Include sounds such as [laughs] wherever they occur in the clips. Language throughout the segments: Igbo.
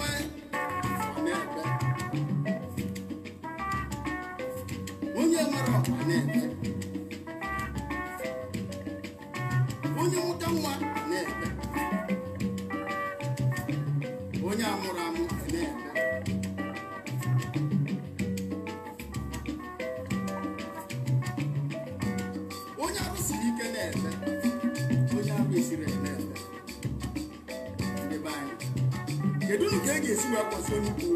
way. Thank you.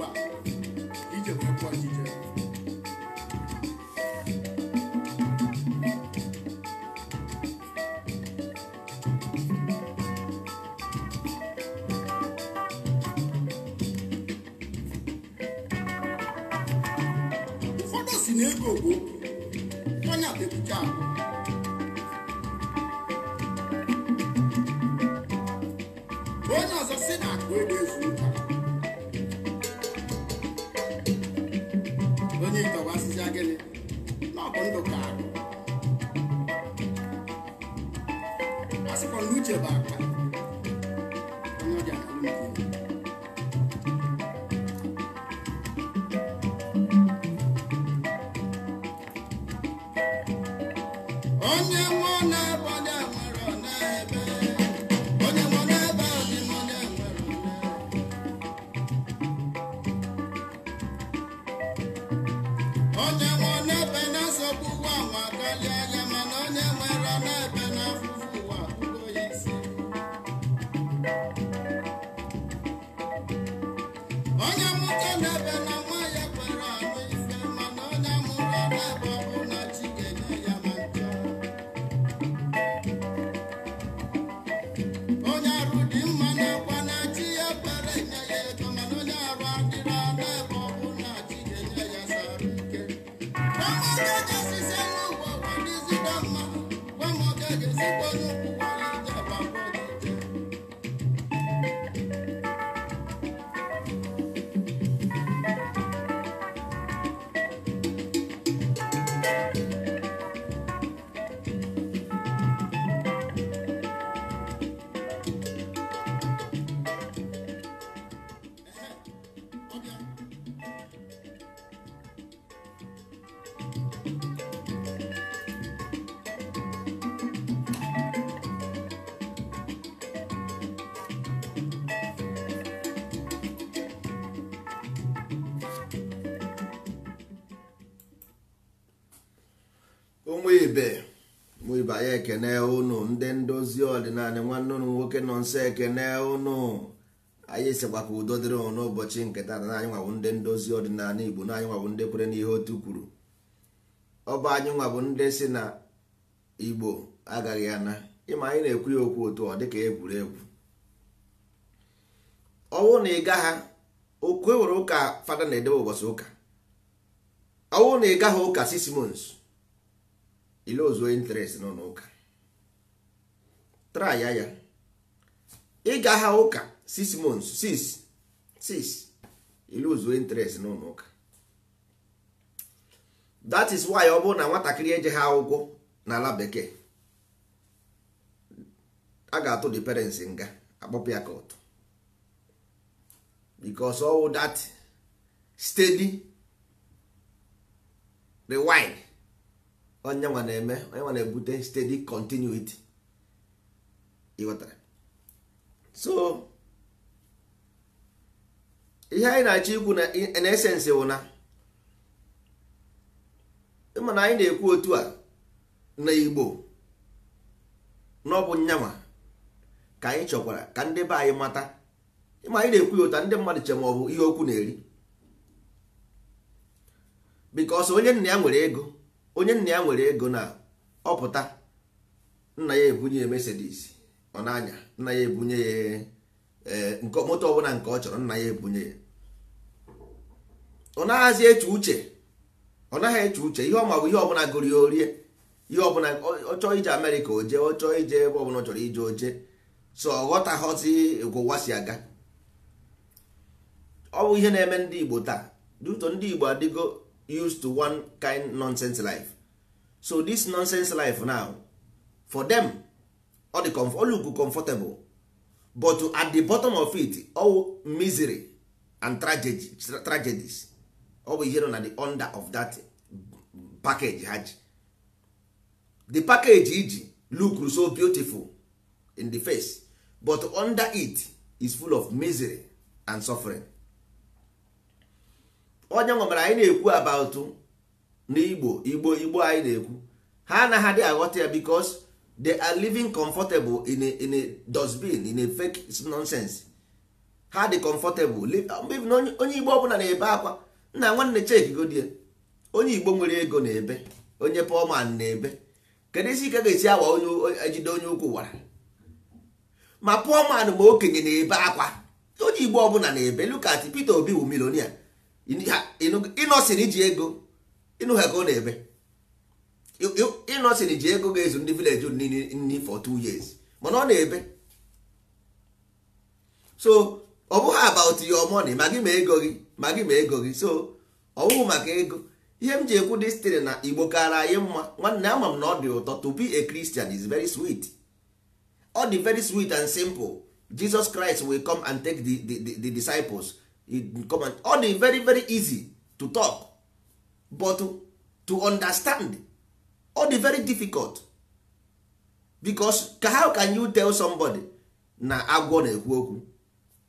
ibe mụ ibe anyị ekene ụnụ ndị ndozi ọdịnala nwanne ụnụ nwoke nọ nso ekene ụnụ anyị sikwa ka udo dịrị ụnụ n'ụbọchị nketa na anyị nwabụ ndị ndozi ọdịnala igbo na anyị nwabụ ndị kwere n'ihe otu kwuru ọ bụ anyị nwabụ ndị si na igbo agaghị ana ịma anyị na-ekwu ya okwu otu ọ dịka egwuregwu ọwụ na ịga ha okwu ewere ụka fada na-edebe ụbọchị ụka ọwụ na ịga ha ụka sismons ile ozuo interest nọ n'ụka traya ya ịga ha ụka 6 months 6 6 ile ozuo interest nọ n'ụka that is why ọ bụrụ na nwatakịrị eje ha ụgwọ n'ala bekee a ga-atụ the parents nga akpọpụ ya ka ụtụ because that steady rewind onye nwa na-eme onye nwa na-ebute steady continuity so ihe anyị na-achọ ikwu na in essence wụ na ịma na anyị na-ekwu otu a na igbo n'ọbụ nyanwa ka anyị chọkwara ka ndị be anyị mata ịma anyị na-ekwu ya ụta ndị mmadụ che ma ọ bụ ihe okwu na-eri because onye nna ya nwere ego onye nna ya nwere ego na ọpụta nna ya ebunye ya mesedis ọ nanya nna ya ebunye ya eh, moto ọbụla nke ọ chọrọ nna ya ebunye ya ọ naghazi eche uche ọ naghị eche uche ihe ọma bụ ihe ọbụla gụrụ ya orie ihe ọbụla ọ chọọ ije Amerịka oje ọ chọọ ije ebe ọbụla ọ chọrọ ije oje so ọ ghọtaghọzi gwụwa si aga ọ bụ ihe na-eme ndị Igbo taa duto ndị Igbo adịgo used to one kind nonsense life so this nonsense life now for them comfor dị olugu comfortable but at the bottom of it all misery and tragedies always bụ ihe na the under of that package ha the package iji look so beautiful in the face but under it is full of misery and suffering onye nwe mere anyị na-ekwu about na igbo igbo anyị na-ekwu ha anaghị adị aghọta ya because they are living comfortable in a, in a dustbin in a fake nonsense ha dị comfortable onye igbo ọbụla na-ebe akwa nna nwanne chekgodie onye igbo nwere ego na-ebe onye poman na-ebe kedu isi ike ga-esi awa onye ejide onye ukwu wara ma poman ma okenye na-ebe akwa onye igbo ọbụla na-ebe lukati Peter Obi wu milonia ịnọsịrị ji ego ịnụ ha ka ọ na-eme ịnọsịrị ji ego ga-ezu ndị vileji nni for two years mana ọ na-ebe so ọ bụghị about your money ma gị ma ego gị ma gị ma ego gị so ọ maka ego ihe m ji ekwu dịstịrị na igbo kara anyị mma nwanne ama m na ọ dị ụtọ to be a Christian is very sweet ọ dị very sweet and simple Jesus Christ will come and take the the the disciples ọ dị very very easy to talk but to understand ọ dị very difficult because how can you tell somebody na agwọ na-ekwu okwu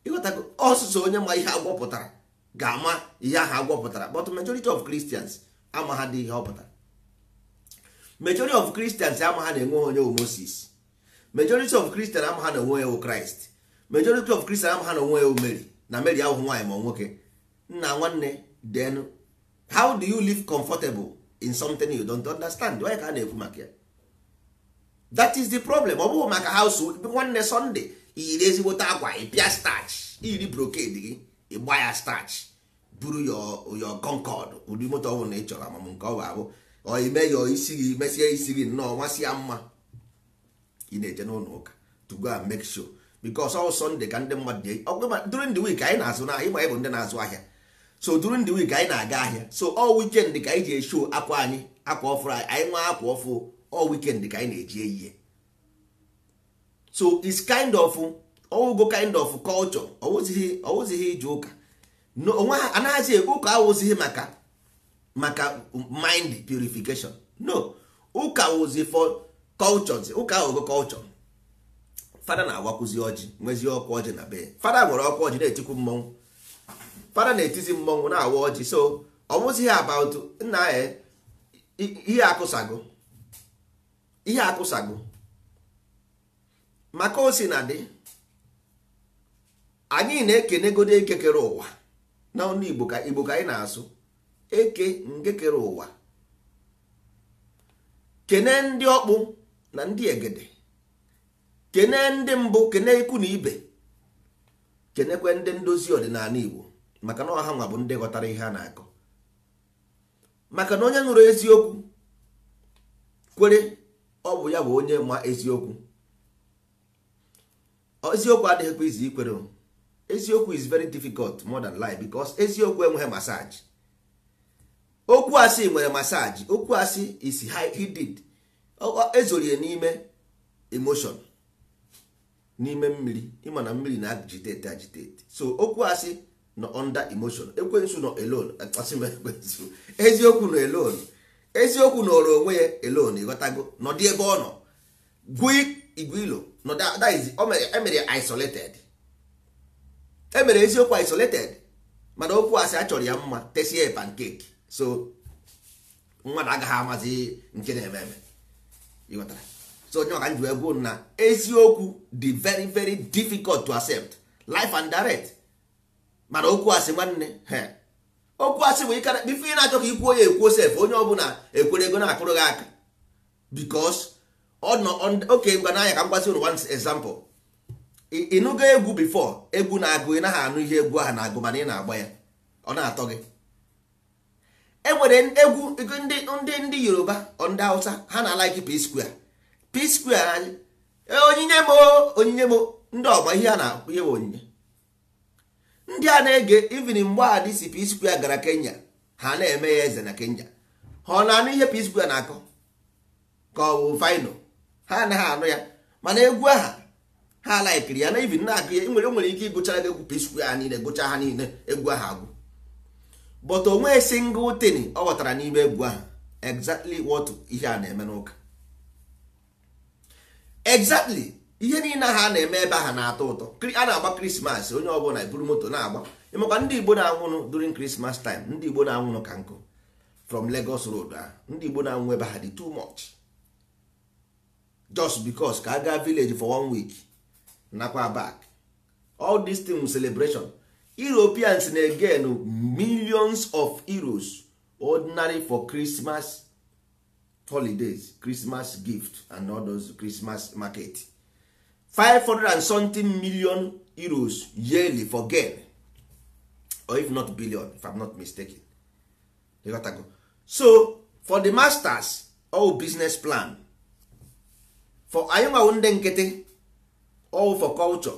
ịghọtago ọsụsụ onye ma ihe agwọ pụtara ga-ama ihe ahụ agwọ pụtara but majority of Christians ama ha dị ihe ọ pụtara majority of Christians ama ha na-enwe onye wu Moses majority of Christians ama ha na onwe ya wu Christ majority of Christians ama ha na onwe ya wu Mary na mary ahụ nwaanyị ma nwoke nna nwanne then how do you live comfortable in something you don't understand onye ka a na-ekwu maka ya that is the problem ọ bụghị maka household nwanne sunday iyiri ezigbote akwa ịpịa starch iyiri brocade gị ịgba ya starch buru your concord ụdị moto ọbụla na ị chọrọ amam nke ọ bụ abụ oime ya isi gị mesie isi gị nnọọ nwa si ya mma ị na-eje n'ụlọ ụka to go and make sure because all Sunday ka ndị mmadụ dị ọgwụma during the week anyị na-azụ n'ahịa ịgba ịbụ ndị na-azụ ahịa so during the week anyị na-aga ahịa so ọ weekend ka anyị ji esho akwa anyị akwa ọfụrụ anyị anyị nwa akwa ọfụ ọ weekend ka anyị na-eji eyiye so it's kind of ọwụgo oh, kind of culture ọwụzighị ọwụzighị ije ụka onwe ha anaghịzi ụka awụzighị maka maka mind purification no ụka oh, wụzi for cultures ụka awụgo culture oh, fada na-awakwụzi ọjị nwezie ọkwa ọjị na be fada nwere ọkwa ọjị na-etikwu mmọnwụ fada na-etizi mmọnwụ na-awa ọjị so ọnwụzi ihe about nna ya e, ihe akụsago ihe akụsago maka o na dị anyị na-ekenegodo eke kere ụwa na ọnụ igbo ka igbo ka anyị na-asụ eke nke kere ụwa kene ndị ọkpụ na ndị egede kene ndị mbụ kene ikwu na ibe kenekwe ndị ndozi ọdịnala igbo maka na ọha nwa bụ ndị ghọtara ihe a na-akọ maka na onye nụrụ eziokwu kwere ọ bụ ya bụ onye ma eziokwu eziokwu adịghịkwa izi ikwere eziokwu is very difficult more than lie because eziokwu enweghị masaji okwu asị nwere masaji okwu asị is hidden ezorie n'ime emotion n'ime mmiri ịma na mmiri na agitete agitete so okwu asị nọ under emotion ekwensu nọ alone ekwensu eziokwu nọ alone eziokwu nọrọ onwe ya alone ịghọtago nọdị ebe ọ nọ gụọ igwilo emere isolated emere eziokwu isolated mana okwu asị achọrọ ya mma tesie pancake so mmadụ agaghị amazi nke na-eme eme ịghọtara so onye ọka njiwe gwuo na eziokwu dị very very difficult to accept life and direct mana okwu asị nwanne okwu asị bụ ikara ife ị na-achọ ka ikwuo ya ekwuo sef onye ọbụla ekwere ego na-akụrụ gị aka because ọ oke mgba n'anya ka m gwazi unu one example ịnụgo egwu bifo egwu na-agụ ị naghị anụ ihe egwu ahụ na-agụ mana ị na-agba ya ọ na-atọ gị e nwere egwu ndị ndị Yoruba ndị Hausa ha na-alaiki P-Square p square anyị e, onyinye m onyinye m ndị ọgba ihe a na akwụ ihe onyinye ndị a na-ege ivin mgbe a dị si p square gara kenya ha na-eme ya eze na kenya ha ọ na-anụ ihe p na-akọ ka ọ bụ vino ha anaghị anụ ya mana egwu aha ha laikiri ya na ivin na-akụ ya nwere nwere ike ịgụchara gị egwu p ha niile gụcha ha niile egwu aha agwụ but onwe single tin ọ ghọtara n'ime egwu aha exactly what ihe a na-eme n'ụka exactly ihe niile ha na-eme ebe ha na-atọ ụtọ a na-agba krismas onye ọbụla eburu moto na-agba ịmakwa ndị igbo na-anwụnụ during christmas time ndị igbo na-anwụnụ ka nkụ from Lagos road a ah, ndị igbo na-anwụ ebe ha dị too much just because ka a gaa village for one week nakwa back all this thing celebration Europeans na-again millions of euros ordinary for Christmas holidays christmas gift and all those christmas market 500 and something million euros yearly for gain or if not billion if i'm not mistaken you got to go. so for the masters all business plan for anyị nwawo ndị nkịtị all for culture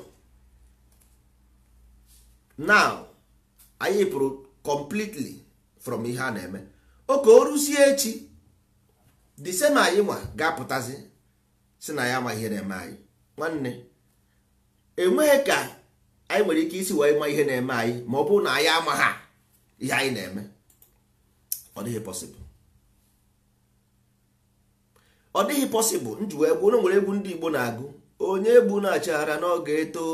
now anyị pụrụ completely from ihe a na-eme oke o rusie echi the same anyị nwa ga-apụtazi si na ya amaghị ihe na-eme anyị nwanne enweghị ka anyị nwere ike isi wee ma ihe na-eme anyị ma ọ bụrụ na anyị ha ihe anyị na-eme ọ dịghị pọsịbụl ọ dịghị possible njiwe egwu ụlọ nwere egwu ndị Igbo na-agụ onye egbu na-achara n'oge eto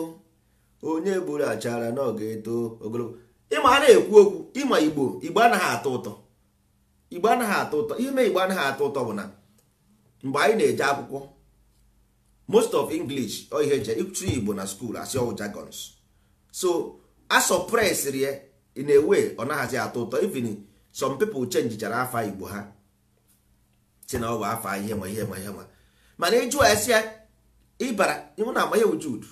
onye na achara n'oge eto ogologo ịma a na-ekwu okwu ịma Igbo Igbo anaghị atọ ụtọ igbo anaghị atọ ụtọ ime igbo anaghị atọ ụtọ bụ na mgbe anyị na-eje akwụkwọ most of english o ihe eje ịtụ igbo na skuul asị ọwụ jagons so a ya in a way ọ naghịzi atọ ụtọ even some people jara afa igbo ha si na ọ bụ afa ihe ma ihe ma ihe ma mana ịjụ esi ya ịbara ịhụ na ama ya ujudu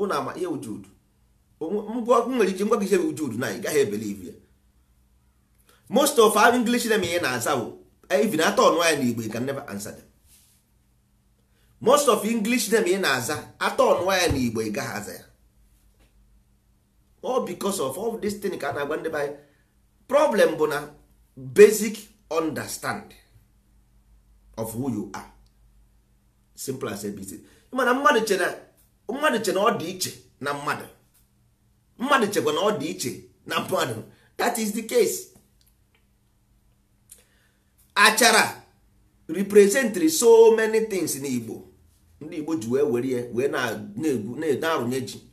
ụna ama ya ujudu ngwa nwere ike ngwa gị ihe ujudu na ị gaghị ebelive ya most of our english name ihe na-aza o even atọ ọnụ anyị n'igbo ga can never answer them most of english name ihe na-aza atọ ọnụ anyị n'igbo ga gaghị aza ya all because of all this thing ka a na-agwa ndị problem bụ na basic understand of who you are simple as abc mana mmadụ che na mmadụ che na ọ dị iche na mmadụ mmadụ chekwa na ọ dị iche na mmadụ that is the case achara representri so many things na igbo ndị igbo ji wee were wee na-egwu na-arụnye ji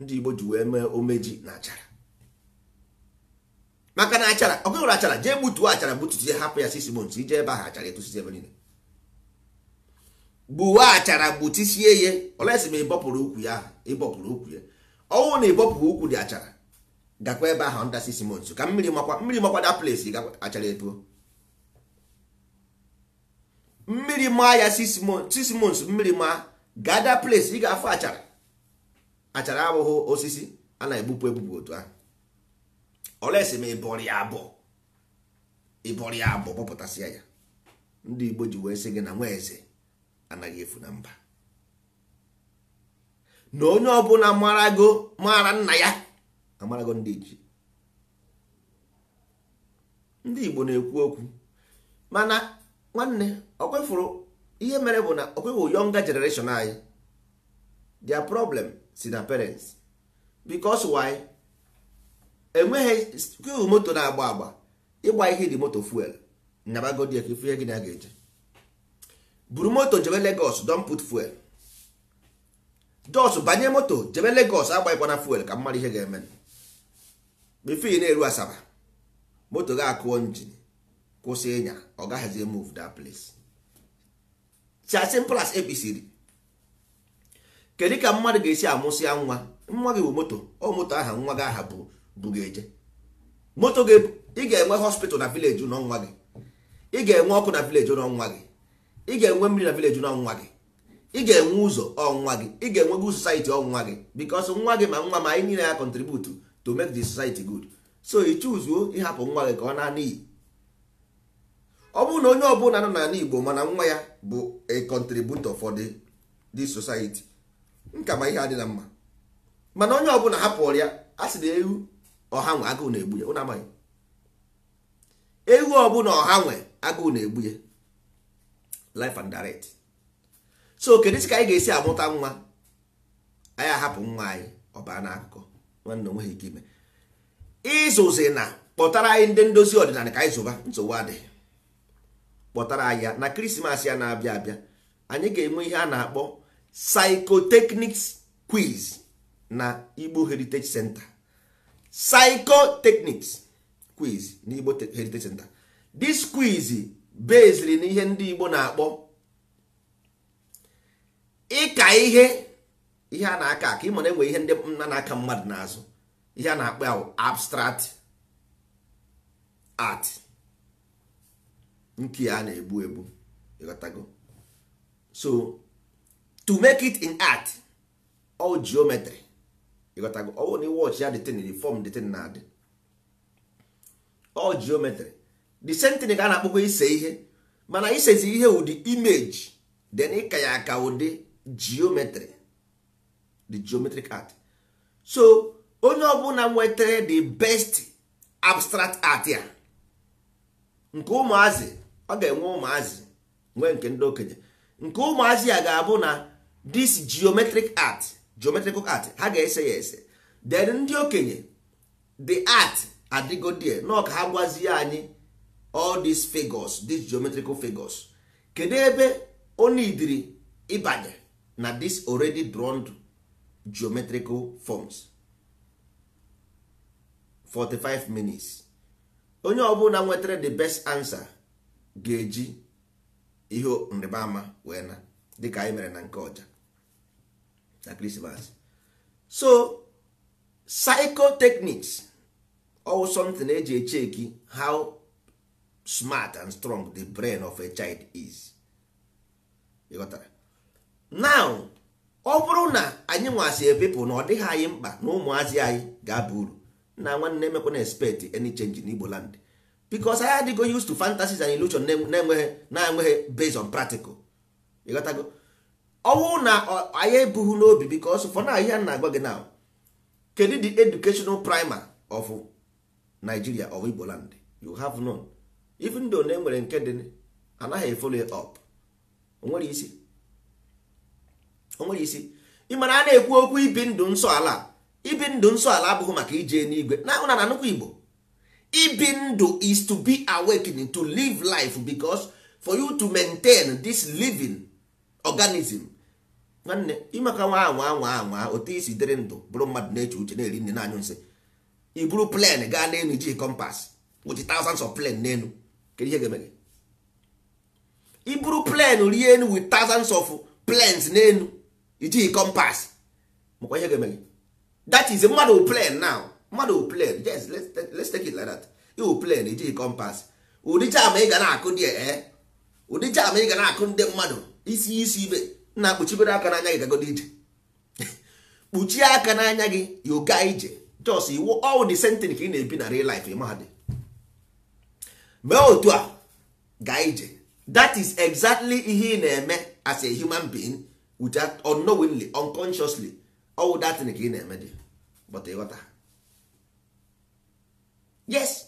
ndị igbo ji wee mee omeji na achara maka na achara ọ nwere achara jee gbutuo achara gbutuzie hapụ ya sisi months ije ebe ahụ achara etusizie ebe niile gbuwa achara gbutusie ya olesi ma ịbọpụrụ ukwu ya ịbọpụrụ ukwu ya ọnwụ na ịbọpụ ukwu dị achara gakwa ebe ahụ nda six months ka mmiri makwa mmiri makwa da place achara etuo mmiri maa ya six months mmiri maa gada place ị ga-afụ achara achara abụghị osisi a na-egbupụ egbupụ otu ahụ olesi ma ịbọrị abụọ ịbọrị abụọ ya ndị Igbo ji wee sị gị na nwa eze anaghị efu na mba na onye ọbụla marago mara nna ya amarago ndị ji ndị Igbo na-ekwu okwu mana nwanne okwefuru ihe mere bụ na okweghị younger generation anyị their problem si na parents because why enweghị kweghị moto na-agba agba ịgba ihe dị moto fuel nyabagodi ihe gị na ga-eje buru moto jebe Lagos don put fuel jos banye moto jebe Lagos agbaghịkwana fuel ka mmadụ ihe ga-eme bifo na-eru asaba moto ga-akụọ njin kwụsị ịnya ọ gaghịzi move that place as simple ekpisiri kedu ka mmadụ ga-esi amụsịa nwa nwa gị bụ moto ọ moto aha nwa gị aha bụ bugeje moto gị ị ga-enwe hospital na village ụlọ nwa gị ị ga-enwe ọkụ na village ụlọ nwa gị ị ga-enwe mmiri na village ụlọ nwa gị ị ga-enwe ụzọ ọnwa gị ị ga-enwe good society ọnwa gị because nwa gị ma nwa ma anyị niile ya contribute to make the society good so ị chụzuo ịhapụ nwa gị ka ọ na-ana ọ bụrụ na onye ọbụla nọ n'ala Igbo mana nwa ya bụ a contributor for the the society nkama ihe adịla mma mana onye ọbụla hapụrụ ya a sị na ewu ọha nwe agụụ na-egbu ya ụnụ amaghị ewu ọbụla ọha nwe agụụ na-egbu ya life and direct so kedu ka anyị ga-esi amụta nwa anyị ahapụ nwa anyị ọbara n'akụkọ nwanne onweghị ike ime ịzụzi na kpọtara anyị ndị ndozi ọdịnala ka anyị zụba nsogbu adịghị kpọtara anyị ya na krismas ya na-abịa abịa anyị ga-enwe ihe a na-akpọ psychotechnics quiz na igbo heritage center psychotechnics quiz na igbo heritage center this quiz beziri na ihe ndị igbo na-akpọ ịka ihe ihe a na-aka aka ịma na enwe ihe ndị nna na-aka mmadụ n'azụ ihe a na-akpọ abstract art nke a na-egbu egbu ịghọtago so to make it in art all geometry ịghọtago ọwụ na iwọch ya detin di form detin na adị all geometry the ka a na-akpọkwa ise ihe mana isezi ihe ụdị image then ịka ya aka ụdị geometry the geometric art so onye ọbụla nwetara the best abstract art ya nke ụmụazị ọ ga-enwe ụmụazị nwee nke ndị okenye nke ụmụazị a ga-abụ na this geometric art geometrical art ha ga-ese ya ese then ndị okenye the art adịgodie nọ ka ha gwazie anyị all these figures these geometrical figures kedu ebe onidiri ịbanye na this already drawn geometrical forms 45 minutes onye ọbụla nwetara the best answer ga-eji ihe nrịba ama wee na dịka anyị mere na nke ọja na krismas so psychotechnics or something eji echeki how smart and strong the brain of a child is ịghọtara now ọ bụrụ na anyị nwasị epepụ na ọ dịghị anyị mkpa na ụmụazị anyị ga-aba uru na nwanne na expect any change n'igbo land because anyị adịgo used to fantasies and illusion na-enweghị na-enweghị eh, eh, based on practical ịghọtago ọnwụ na anyị ebughị n'obi because for now ihe na-agwa gị now kedu the educational primer of Nigeria of Igboland you have known even though na enwere nke dị anaghị follow up onwere isi onwere isi ị mara a na-ekwu okwu ibi ndụ nsọ ala ibi ndụ nsọ ala abụghị maka ije n'igwe na ụna na nnukwu Igbo ibi ndụ is to be awakening to live life because for you to maintain this living organism nwanne ịmaka nwa anwa anwa anwa otu isi dịrị ndụ bụrụ mmadụ na-eche uche na-eri nne na-anyụ nsị i buru plen gaa n'elu iji kompas wuchi thousands of plen n'elu kedu ihe ga-eme i buru plen rie enu with thousands of plens n'elu ijighị kompas makwa ihe ga-eme that is mmadụ plen now mmadụ plan yes let's take it like iwu plan iji kompas ụdị jam ị ga na-akụ dị ee eh? ụdị jam ị ga na-akụ ndị mmadụ isi isi ibe na kpuchibere aka n'anya gị gagodo ije [laughs] kpuchie aka n'anya gị ga ije jos iwu all the sentence ka ị na-ebi na real life mahadị mee otu a gaa ije that is exactly ihe ị na-eme as a human being without unknowingly unconsciously all that ka ị na-eme dị but ịghọta yes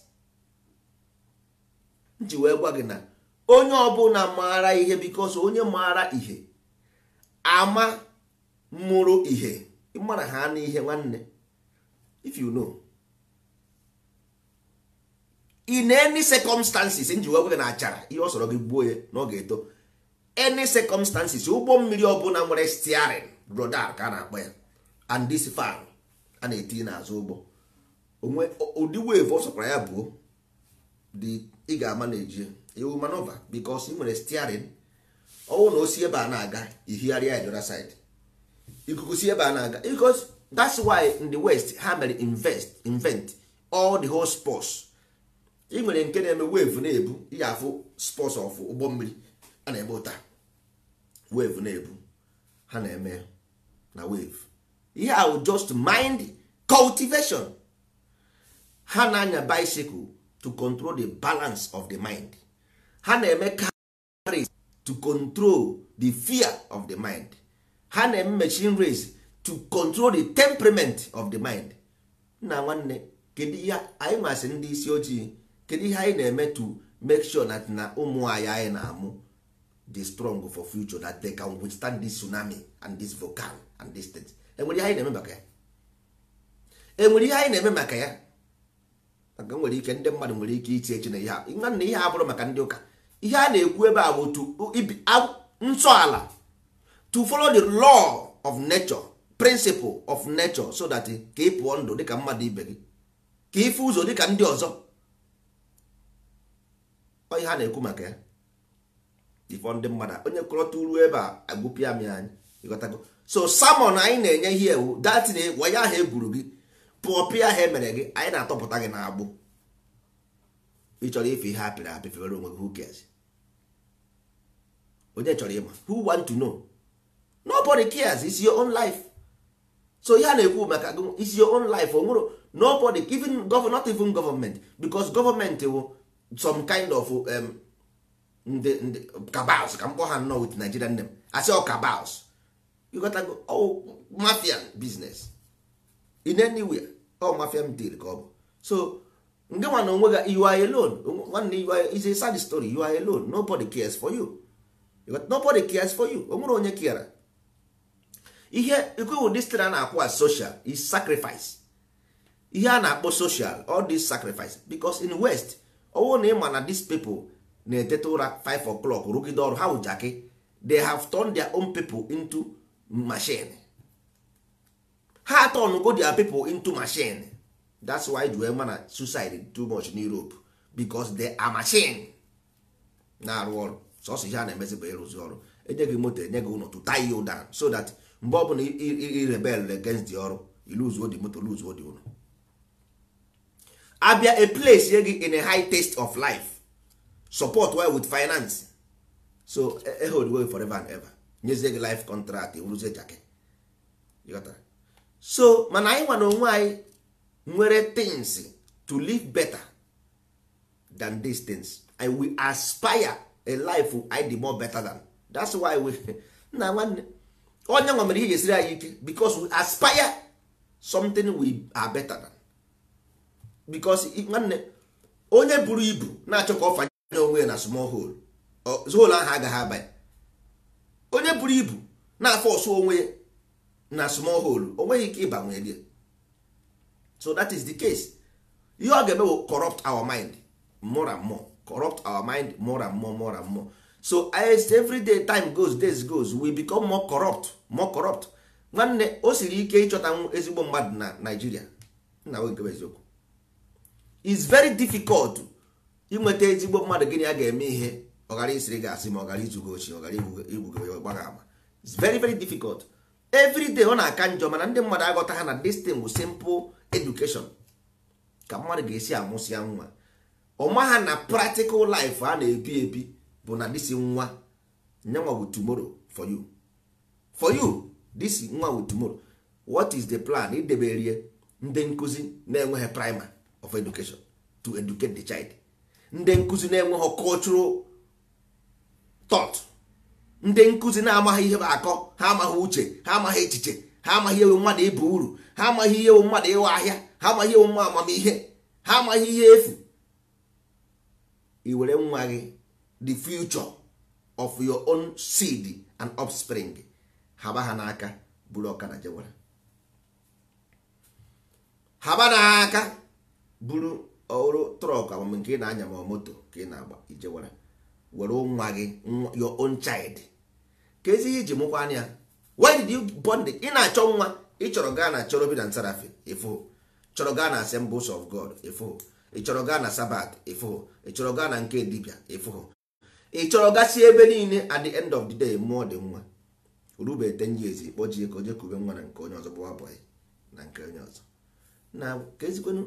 m wee gwa gị na onye ọbụla maara ihe bikos onye maara ihe ama mụrụ ihe mara ha n'ihe nwanne if you know in any circumstances nji wee gwa gị na achara ihe ọ sọrọ gị gbuo ya na ọ ga-eto any circumstances ụgbọ mmiri ọbụla nwere steering rudal ka a na-akpọ ya and this fan a na-etinye n'azụ ụgbọ onwe ụdị wave ọ sọkwara ya buo dị ị ga-ama na eji ewu manova bikos ị nwere stiarin ọnwụ na osi ebe a na-aga ihigharịa ya dora side ikuku si ebe a na-aga bikos that's why in the west ha mere invest invent all the whole sports ị nwere nke na-eme wave na-ebu ị ga-afụ sports of ụgbọ mmiri a na-eme ụta wave na-ebu ha na-eme na wave ihe ahụ just mind cultivation ha na-anya bicycle to control the balance of the mind ha na-eme race to control the fear of the mind ha na-eme machine race to control the temperament of the mind nna nwanne kedu ihe anyị masị ndị isi ojii kedu ihe anyị na-eme to make sure that na ụmụ anyị anyị na-amụ dị strong for future that they can withstand this tsunami and this volcano and this thing enwere ihe anyị na-eme maka ya enwere ihe anyị na-eme maka ya maka nwere ike ndị mmadụ nwere ike iche eche na ihe a na ihe bụrụ maka ndị ụka ihe a na-ekwu ebe a bụ nsọala to follow the law of nature principle of nature so that ka ị pụọ ndụ dịka mmadụ ibe gị ka ịfụ ụzọ dịka ndị ọzọ ihe ha na-ekwu maka ya ifọ ndị mmadụ onye kọrọta uru ebe a agụpịa m anyị ịghọtago so samon anyị na-enye ihe ewu datin waya ahụ e gburu gị pụọ pịa ha emere gị anyị na-atọpụta gị na agbụ ị chọrọ ife ihe apịrị apị onwe gị who cares onye chọrọ ịma who want to know nobody cares it's your own life so ihe a na-ekwu maka is it's your own life o nwere nobody even gov not even government because government wụ some kind of um, ndị ndị cabals ka m kpọ ha nnọọ with Nigerian name asị ọ cabals ọ oh, mafia business in anywhere ọ mafia m dịrị ka ọ bụ so nge nwa na onwe gị you are alone nwanne you are is a sad story you are alone nobody cares for you nobody cares for you onwere onye kiara ihe ikwewu distri na-akwụ as social is sacrifice ihe a na-akpọ social all this sacrifice because in west ọwụ na ịma na these people na-eteta ụra 5 o'clock rụgide ọrụ ha they have turned their own people into machine ha go their people into machine that's why ji wee ma suicide too much in Europe because they are machine na-arụ ọrụ sọsọ ihe a na-emezi bụ ịrụzi ọrụ enye gị moto enye gị ụlọ to tie you down so that mgbe ọbụla irebel against the ọrụ iluzuo the moto luzuo di ụlọ abịa a place ye gị in a high taste of life support well with finance so e, e hold way forever and ever nyezie gị life contract ewuruzie jake so mana anyị nwa onwe anyị nwere things to live better than these things and we aspire a life anyị dị more better than that's why we [laughs] nna nwanne onye nwa mere ihe ga-esiri anyị ike because we aspire something we are better than because nwanne onye buru ibu na-achọ ka ọ fanye onwe na small hole hole ahụ agaghị abanye onye buru ibu na-afọ ọsụ onwe ya na small hole o nweghị ike ịbanwe dị so that is the case ihe ọ ga-eme corrupt our mind more and more corrupt our mind more and more more and more so as every day time goes days goes we become more corrupt more corrupt nwanne o siri ike ịchọta ezigbo mmadụ na Nigeria nna nwe nke eziokwu is very difficult inweta ezigbo mmadụ gịnị a ga-eme ihe ọ ghara isiri gị asị ma ọ ghara izugo ochie ọ ghara igbugo gbara ama is very very difficult everyday ọ na-aka njọ mana ndị mmadụ aghọta ha na this thing bụ simple education ka mmadụ ga-esi amụsịa nwa ọma ha na practical life a na-ebi ebi bụ na this nwa nyanwa bụ tomorrow for you for you disi nwa bụ tumoro what is the plan rie ndị nkụzi na-enweghị primer of education to educate the child ndị nkụzi na-enweghị cultural thought ndị nkụzi na-amaghị ihe bụ akọ ha amaghị uche ha amaghị echiche ha amaghị ewu mmadụ ịbụ uru ha amaghị ihe ewu mmadụ ịwa ahịa ha amaghị ewu mma amamihe ha amaghị ihe efu iwere nwa gị the future of your own seed and offspring haba ha n'aka buru n'aka buru ọrụ trọk amam nke ị na-anya ma moto ka ị na-agba ijewara were nwa gị your own child ka ezi ihe iji mụkwa anya why did you born the ị na-achọ nwa ị chọrọ gaa na chọrọ bi na nsarafe ifo chọrọ gaa na assemblies of god ifo ị chọrọ gaa na sabat ifo ị chọrọ gaa na nke dibia ifo ị chọrọ gasị ebe niile at the end of the day mmụọ dị nwa rube ten years kpọjie ka oje kube nwa na nke onye ọzọ bụwa bọyị na nke onye ọzọ na ka ezikwenụ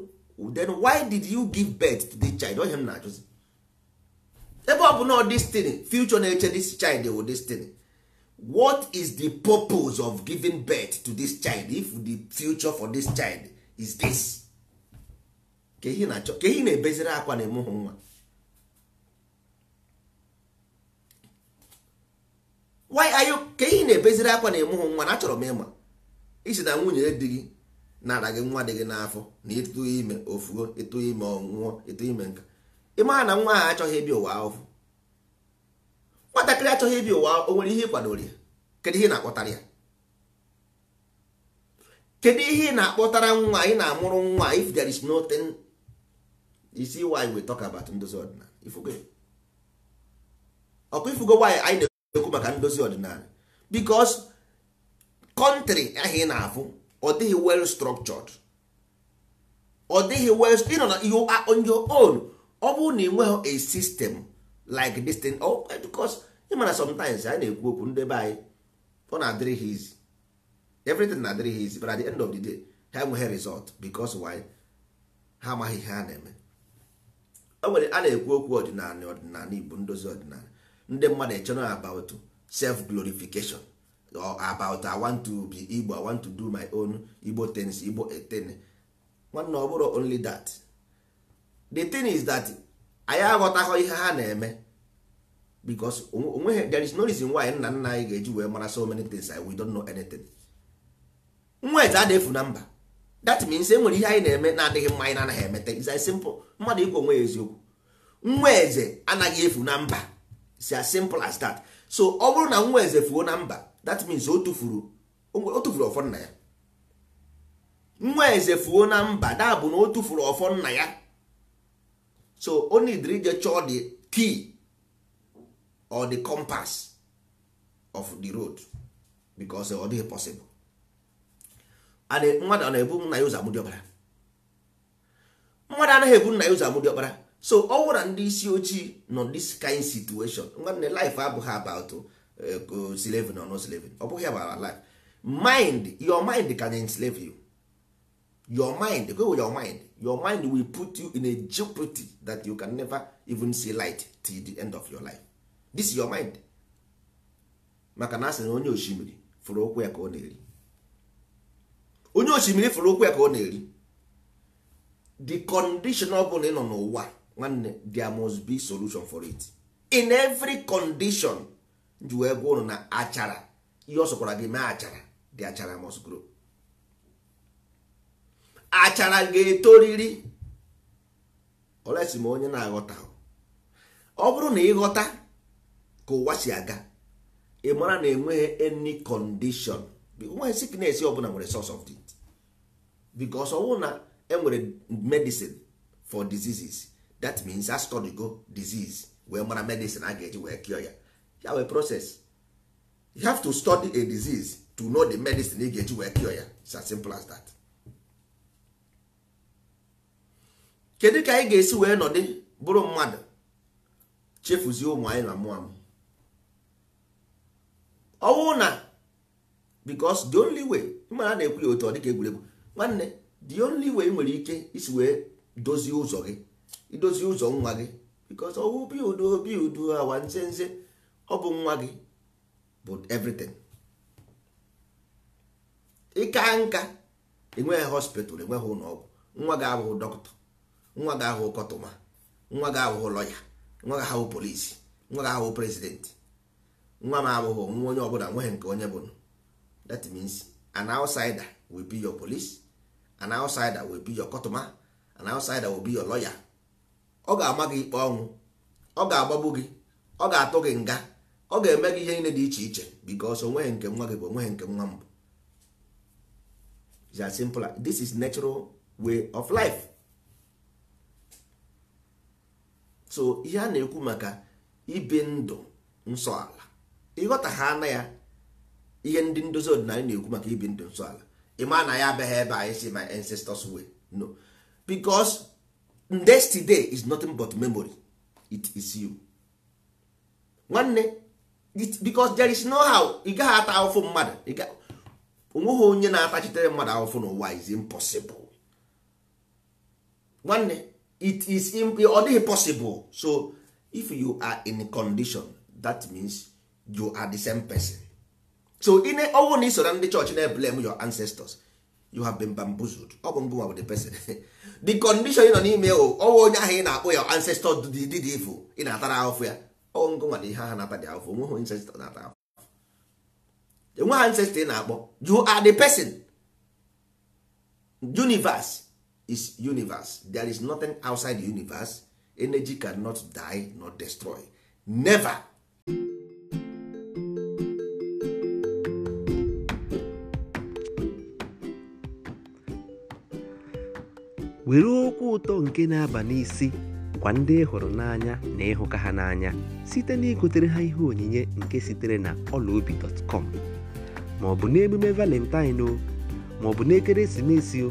then why did you give birth to the child onye m na-ajụzi ebe ọ bụ na destiny future na-eche this child wụ destiny what is the purpose of giving birth to this child if the future for this child is this ka ehi na-ebeziri akwa na emuhụ nwa why are you na-ebeziri akwa na nwa achọrọ m ịma isi na nwunye gị gị nwa dị gị n'afọ na ịtụ ime ofugo ịtụ ime ime nka ịmara na nwa ahụ achọghị ịbịa ụwa ahụhụ nwatakịrị achọghị ịbịa ụwa o nwere ihe ịkwadoro kedu ihe ị na-akpọtara ya kedu ihe ị na-akpọtara nwa ị na-amụrụ nwa if there is nothing you see why we talk about ndozi ọdịnala ifugo ọkụ ifugo why anyị na-ekwu maka ndozi ọdịnala because kọntrị ahụ ị na-afụ ọ dịghị well structured ọ dịghị well ịnọ on your own ọ bụrụ na ị nweghị a system like this thing oh, because ị mana sometimes anyị na-ekwu okwu ndị be anyị ọ na-adịrị ha izi everything na-adịrị ha izi but the end of the day ha enweghị result because why ha amaghị ihe a na-eme o nwere a na-ekwu okwu ọdịnala ọdịnala Igbo ndozi ọdịnala ndị mmadụ echọrọ about self glorification or about I want to be Igbo I want to do my own Igbo things Igbo eten nwanne ọ bụrụ only that the thing is that anyị aghọtaghọ ihe ha na-eme because there is no reason why nna nna anyị ga-eji wee mara so many things we don't know anything nweta a na-efu na mba that means e nwere ihe anyị na-eme na-adịghị mma anyị na-anaghị emete is as simple mmadụ ikwu onwe ya eziokwu nwa eze anaghị efu na mba is as simple as that so ọ bụrụ na nwa eze fuo na mba that means o tụfuru ọfọ nna ya nwa eze fuo na mba da bụ na o tụfuru ọfọ nna ya so only the ije chọọ the key or the compass of the road because ọ dịghị possible and mmadụ na-ebu nna ya ụzọ amụdị ọkpara mmadụ anaghị ebu nna ya ụzọ amụdị ọkpara so ọ wụra ndị isi ojii nọ this kind situation nwanne life abụghị about eh, uh, slavery or no slavery ọ bụghị about life mind your mind can enslave you your mind go with your mind your mind will put you in a jeopardy that you can never even see light till the end of your life this is your mind maka na a na onye osimiri fụrụ okwu ya ka ọ na-eri onye osimiri fụrụ okwu ya ka ọ na-eri the condition ọ bụla ị nọ n'ụwa nwanne there must be solution for it in every condition ji wee gwa ụnụ na achara ihe ọ sọkwara gị mee achara the achara must grow achara ga-etoriri olesi m onye na-aghọta ọ bụrụ na ịghọta ka ụwa si aga ị mara na enweghị any condition nweghị sickness ọbụla nwere source of it because ọwụ na enwere medicine for diseases that means a study go disease wee mara medicine a ga-eji wee cure ya ya wee process you have to study a disease to know the medicine ị ga-eji wee cure ya it's as simple as that. kedu ka anyị ga-esi wee nọdị bụrụ mmadụ chefuzie ụmụ anyị na mmụọ m ọnwụ na because the only way mara na-ekwu ya otu ọ dịka egwuregwu nwanne the only way nwere ike isi wee dozie ụzọ gị idozie ụzọ nwa gị because ọwụ obi udo obi udo awa nze nze ọ bụ nwa gị bụ everything ịka nka enweghị hospital enweghị ụlọọgwụ nwa gị abụghị dọkịta nwa ga ahụ kọtụma nwa ga ahụhụ lọya nwa ga ahụhụ polisi nwa ga ahụhụ prezidenti nwa m abụghị nwa onye ọbụla nweghị nke onye bụrụ that means an outsider will be your police an outsider will be your kọtụma an outsider will be your lawyer ọ ga-ama gị ikpe ọnwụ ọ ga-agbagbu gị ọ ga-atụ gị nga ọ ga-eme gị ihe niile dị iche iche because onweghị nke nwa gị bụ onweghị nke nwa m. it's as simple this is natural way of life so ihe a na-ekwu maka ibi ndụ nsọ ala ịghọta ha na ya ihe ndị ndozi ọdịnala na-ekwu maka ibi ndụ nsọ ala ịma na ya abịaghị ebe anyị si my ancestors way no because yesterday is nothing but memory it is you nwanne because there is no how ị gaghị ata ahụfụ mmadụ onweghị onye na-atachitere mmadụ ahụfụ n'ụwa is impossible nwanne it is ọ dịghị possible so if you are in condition that means you are the same person so ine ọnwụ na isoro ndị chọọchị na blame your ancestors you have been bamboozled ọ bụ ngụnwa bụ the person [laughs] the condition ị nọ n'ime o, ọnwụ onye ahụ ị na-akpọ ya ancestor did evil ị na-atara ahụfụ ya ọnwụ ngụnwa na ihe ha na-ata dị ahụfụ onwe ha ancestor na-ata ahụfụ enwe ha ancestor ị na-akpọ you are the person universe is universe there is nothing outside the universe energy cannot die nor destroy never were okwu ụtọ nke na-aba n'isi gwa ndị hụrụ n'anya na ịhụka ha n'anya site na igotere ha ihe onyinye nke sitere na ọlaobi.com ma ọ bụ n'emume valentine o ma ọ bụ n'ekeresimesi o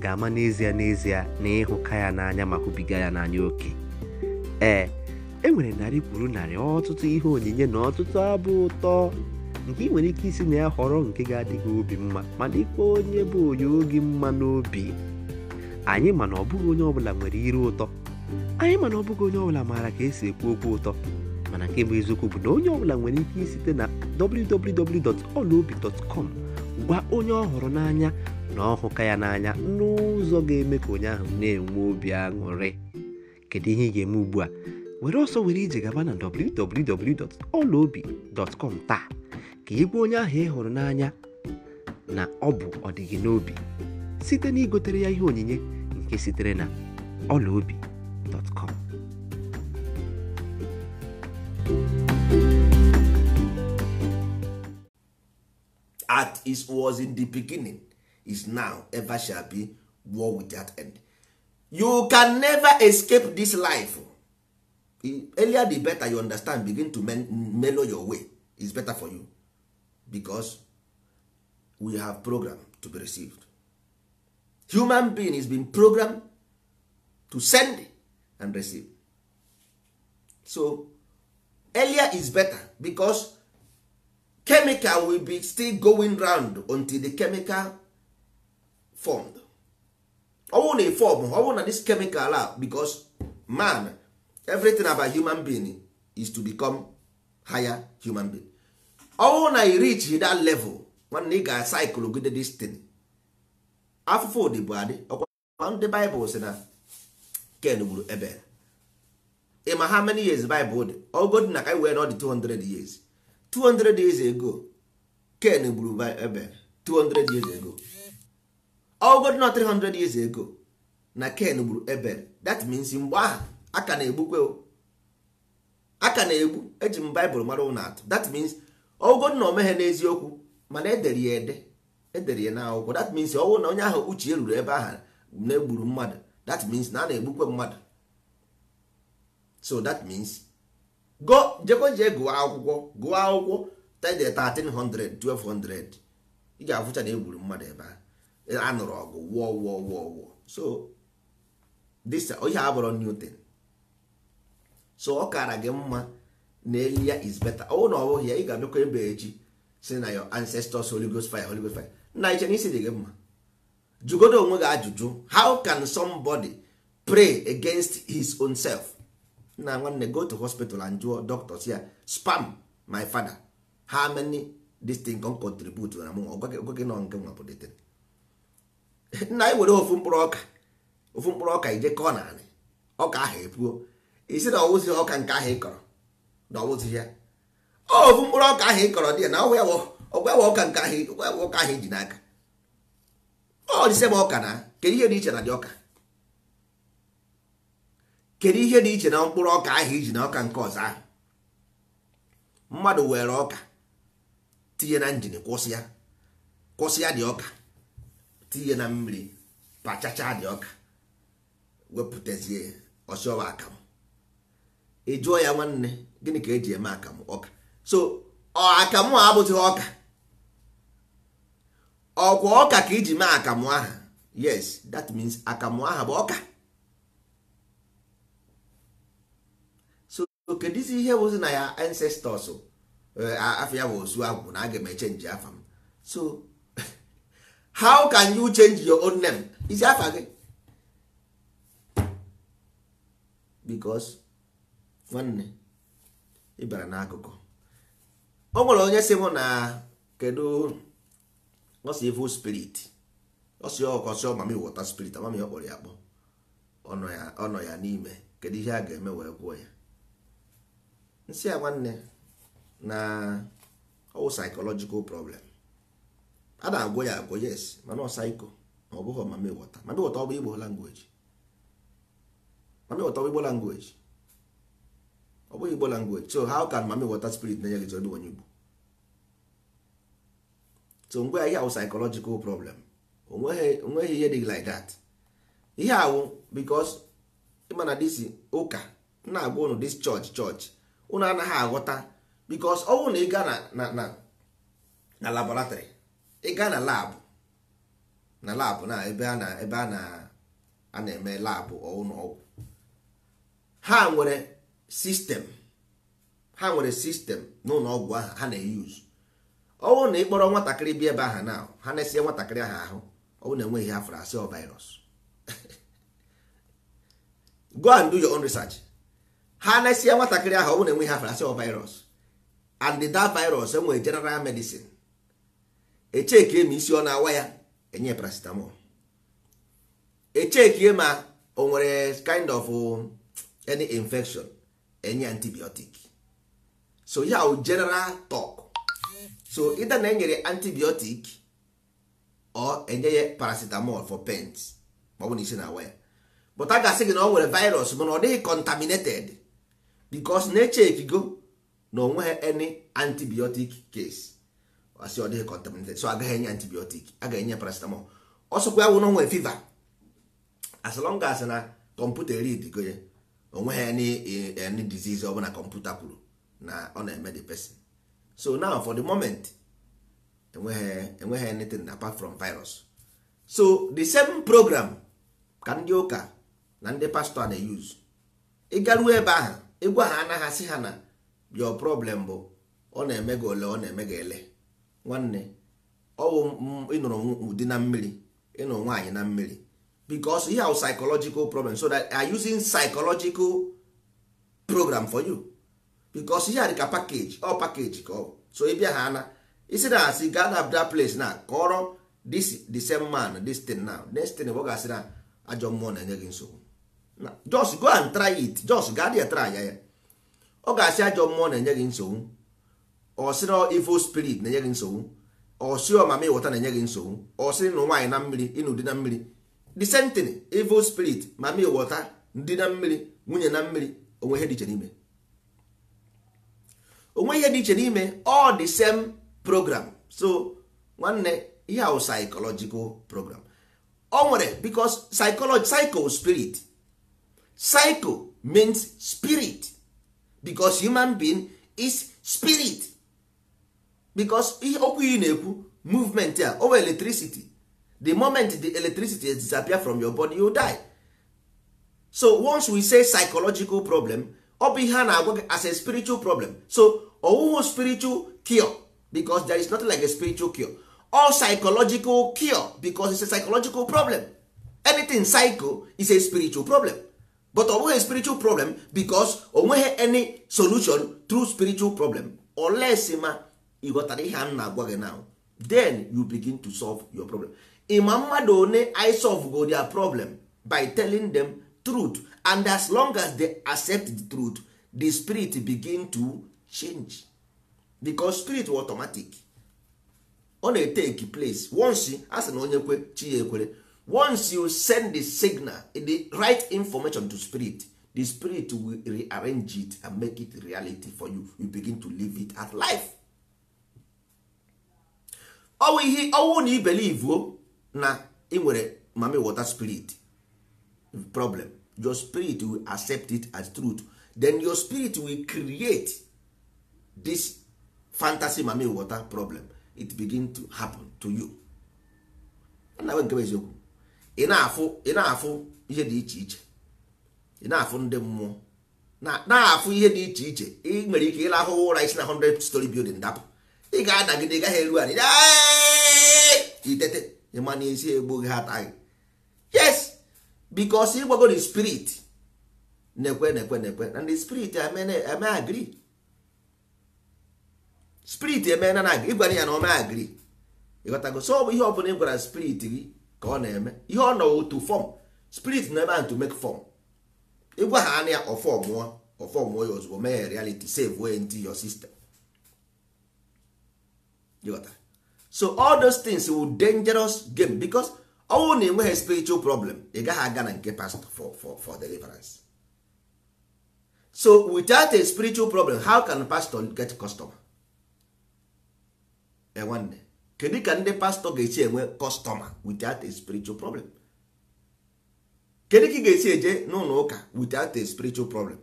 ga-ama n'ezie n'ezie na ịhụka ya n'anya ma hụbiga ya n'anya oke ee e nwere narị kwuru narị ọtụtụ ihe onyinye na ọtụtụ abụ ụtọ nke ị nwere ike isi na ya họrọ nke ga-adịghị obi mma mana ikpe onye bụ onye oge mma n'obi anyị mana ọ bụghị onye ọbụla nwere ire ụtọ anyị mana ọ bụghị onye ọbụla maara ka esi ekwu okwu ụtọ mana nke bụ eziokwu bụ na onye ọbụla nwere ike isite na www.olaobi.com gwa onye ọ n'anya na ọ hụka ya n'anya n'ụzọ ga-eme ka onye ahụ na-enwe obi aṅụrị kedu ihe ị ga-eme ugbu a were ọsọ were ije gaba na www.olaobi.com taa ka ị onye ahụ ị hụrụ n'anya na ọ bụ ọdịghị n'obi site na igotere ya ihe onyinye nke sitere na olaobi.com At is was in the beginning is now ever shall be war without end you can never escape this life earlier the better you understand begin to mellow your way is better for you because we have program to be received human being is been programmed to send and receive so earlier is better because chemical will be still going round until the chemical formed ọ na ị form ọ na this chemical a because man everything about human being is to become higher human being ọ na ị reach that level nwanne ị ga cycle gide this thing afụfụ ụdị bụ adị ọkwa ndị Bible na Ken gburu Ebel ị ma many years Bible dị ogod na ka anyị wee nọ 200 years 200 years ago Ken gburu Ebel 200 years ago ọgọdụ na 300 years ago na ken gburu ebel that means mgbe ahụ aka na-egbukwe aka na-egbu eji m baịbụl mara ụlọ atụ that means ọgọdụ oh, na omeghe n'eziokwu mana edere ya ede edere ya n'akwụkwọ that means ọnwụ na onye ahụ uche ruru ebe ahụ na-egburu mmadụ that means na a na-egbukwe mmadụ so that means go jekwa gụọ akwụkwọ gụọ akwụkwọ 1300 1200 ị ga-afụcha na egburu mmadụ ebe ahụ anụrụ ọgụ wụọ wụọ wụọ wụọ so this ihe abụrụ Newton so ọ kara gị mma na elu ya is better ọ na ọ bụghị ya ị ga-abịakwa ebe echi si na your ancestors Holy Ghost fire Holy fire nna iche na isi dị gị mma jugodo onwe gị ajụjụ how can somebody pray against his own self nna nwanne go to hospital and jụọ doctors ya spam my father how many this thing can contribute na m ọgwa gị nke nwa bụ nna anyị e were ofu mkpụrụ ọka ofu mkpụrụ ọka ije kọọ naanị ọka ahụ epuo isi na ọwụzi ọka nke ahụ ị kọrọ na ọwụzi ya ofu mkpụrụ ọka ahụ ị kọrọ dị ya na ọgwa ọgwa ọka nke ahụ ọka ahụ iji e n'aka ọ dịse m ọka na kedu ihe dị iche na dị ọka kedu ihe dị iche na mkpụrụ ọka ahụ iji na ọka nke ọzọ ahụ mmadụ were ọka tinye na njin kwụsị ya kwụsị ya dị ọka tinye na mmiri pachacha dị ọka wepụtazie ọchịọwa akamụ ị jụọ ya nwanne gịnị ka eji eme akamụ ọka so ọ akamụ a abụtụghị ọka ọkwa ọka ka iji mee akamụ aha yes that means akamụ aha bụ ọka so kedizi ihe bụzi na ya ancestors eh, afọ ya bụ osu agwụ na aga m echenji afa m so how can you change your own name isi afa gị because nwanne ị bịara n'akụkụ ọ nwere onye si mụ na kedu ọsọ evil spirit ọsọ ọkọsị ọmami wọta spirit amami ọ kpọrọ ya akpọ ọnọ ya n'ime kedu ihe a ga-eme wee gwụọ ya nsị ya nwanne na ọwụ psychological problem a na-agwọ ya agwọ yes mana ọsaiko ma ọ bụghị mami wọta mami wọta ọ bụ igbo langweji mami wọta ọ bụ igbo langweji ọ bụghị igbo langweji so how can mami wọta spirit na-enye gị zọrọ onye igbo so ngwa ya ihe awụ psychological problem onweghị ihe dị like that ihe awụ because ịmana disi ụka na-agwa ụnụ dis church church ụnụ anaghị aghọta because ọ bụrụ na ị gaa na na laboratory ị gaa na labụ na labụ na ebe a na ebe a na na-eme labụ ụlọ ọgwụ ha nwere sistem ha nwere sistem n'ụlọ ọgwụ ahụ ha na-eyuzu ọwụ na ịkpọrọ nwatakịrị bi ebe aha na ha na-esie nwatakịrị aha ahụ ọwụ na enweghị afọ asị ọ virus [laughs] go and do your own research ha na-esie nwatakịrị aha ọwụ na enweghị afọ asị ọ virus and that virus enwere general medicine echeke ma isi ọ na-awa ya enye paracetamol echeke ma o nwere kind of eh, any infection enye antibiotic so ya o general talk so ịda na enyere antibiotic or enye ya paracetamol for pains ma ọ bụ na isi na-awa ya but a ga-asị gị na ọ nwere virus mana ọ dịghị contaminated because na eche go na onweghị any antibiotic case asị ọ dịghị contaminated so agaghị enye antibiotic agaghị ga-enye paracetamol ọsọkwa awụ n'onwe fiva as long as na kọmputa read go ya onwe ya any disease ọ bụla kọmputa kwuru na ọ na-eme the person so now for the moment enweghị enweghị anything apart from virus so the same program ka ndị ụka na ndị pastọ na-eyuz ịgaruo ebe ahụ ịgwa ha anaghị asị ha na your problem bụ ọ na-eme gị ole ọ na-eme gị ele nwanne ọwụ ịnụrụ ụdị na mmiri ịnụrụ nwaanyị na mmiri because ihe ahụ psychological problem so that are using psychological program for you because ihe a dịka package ọ package ka ọ so ị bịa ha na isi na asị gaa na place na kọrọ this the same man this thing now next thing ọ ga-asị na ajọ mmụọ na-enye gị nsogbu just go and try it just gaa there try ya ya ọ ga-asị ajọ mmụọ na-enye gị nsogbu ọsịrị evil spirit na-enye gị nsogbu ọsị ọmama ịwọta na-enye gị nsogbu ọsịrị na nwaanyị na mmiri ịnụ dị na mmiri the same spirit mama ịwọta ndị na mmiri nwunye na mmiri onwe ihe dị iche n'ime onwe ihe dị iche n'ime all the same program so nwanne ihe ahụ psychological program o nwere because psychology psycho spirit psycho means spirit because human being is spirit because ihe okwu iyi na-ekwu movement a over electricity the moment the electricity disappear from your body you die so once we say psychological problem ọ bụ ihe a na-agwa gị as a spiritual problem so ọwụwụ spiritual cure because there is nothing like a spiritual cure or psychological cure because it's a psychological problem anything psycho is a spiritual problem but ọ bụghị spiritual problem because o nweghị any solution through spiritual problem unless ma you go ihe a na-agwa gị now then you begin to solve your problem ịma mmadụ one i solve go their problem by telling them truth and as long as they accept the truth the spirit begin to change because spirit automatic ọ na-etake place once a sị na onye kwe ekwere once you send the signal the right information to spirit the spirit will rearrange it and make it reality for you you begin to live it as life ọwụ ihe ọwụ na o na ị nwere mami water spirit problem your spirit will accept it as truth then your spirit will create this fantasy mami water problem it begin to happen to you nnawe nke eziokwu ị na-afụ ị na-afụ ihe dị iche iche ị na-afụ ndị mmụọ na afụ ihe dị iche iche ị nwere ike ịlahụ ụra isi na 100 story building dapụ ị ga-adagide gaghị eru anyị itete ịma na egbu gị ha gị yes bikos ịgbago the spirit na-ekwe na-ekwe na-ekwe the spirit eme agri spirit eme na na agri ya na ome agri ịghọtago so ọ bụ ihe ọbụla ị gwara spirit gị ka ọ na-eme ihe ọ nọ to form spirit na ebe ahụ mek make form ịgwa ha anya ọfọ mụọ ọfọ ya ozugbo mee ya reality save way into your so all those things will dangerous game because ọnwụ na enweghị spiritual problem ị gaghị aga na nke pastor for, for, for deliverance so without a spiritual problem how can pastor get customer nwanne kedu ka ndị pastor ga-esi enwe customer without a spiritual problem kedu ka ị ga-esi eje n'ụlọ ụka without a spiritual problem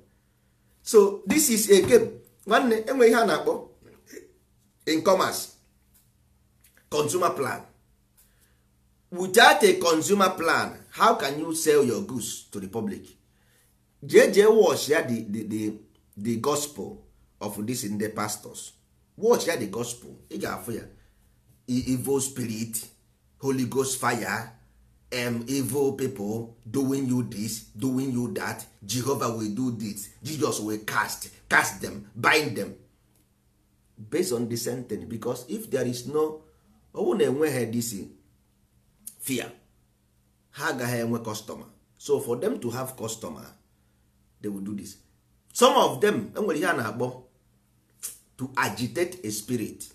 so this is a game nwanne enwe ihe a na-akpọ in commerce consumer plan without a consumer plan how can you sell your goods to the public jee jee watch ya the, the, the, gospel of this ndị pastors watch ya the gospel ị ga-afụ ya evil spirit holy ghost fire um, evil people doing you this doing you that jehovah will do this jesus will cast cast them bind them based on the sentence because if there is no owu na-enweghị this fear ha agaghị enwe customer so for them to have customer they will do this some of them enwere ihe a na-akpọ to agitate a spirit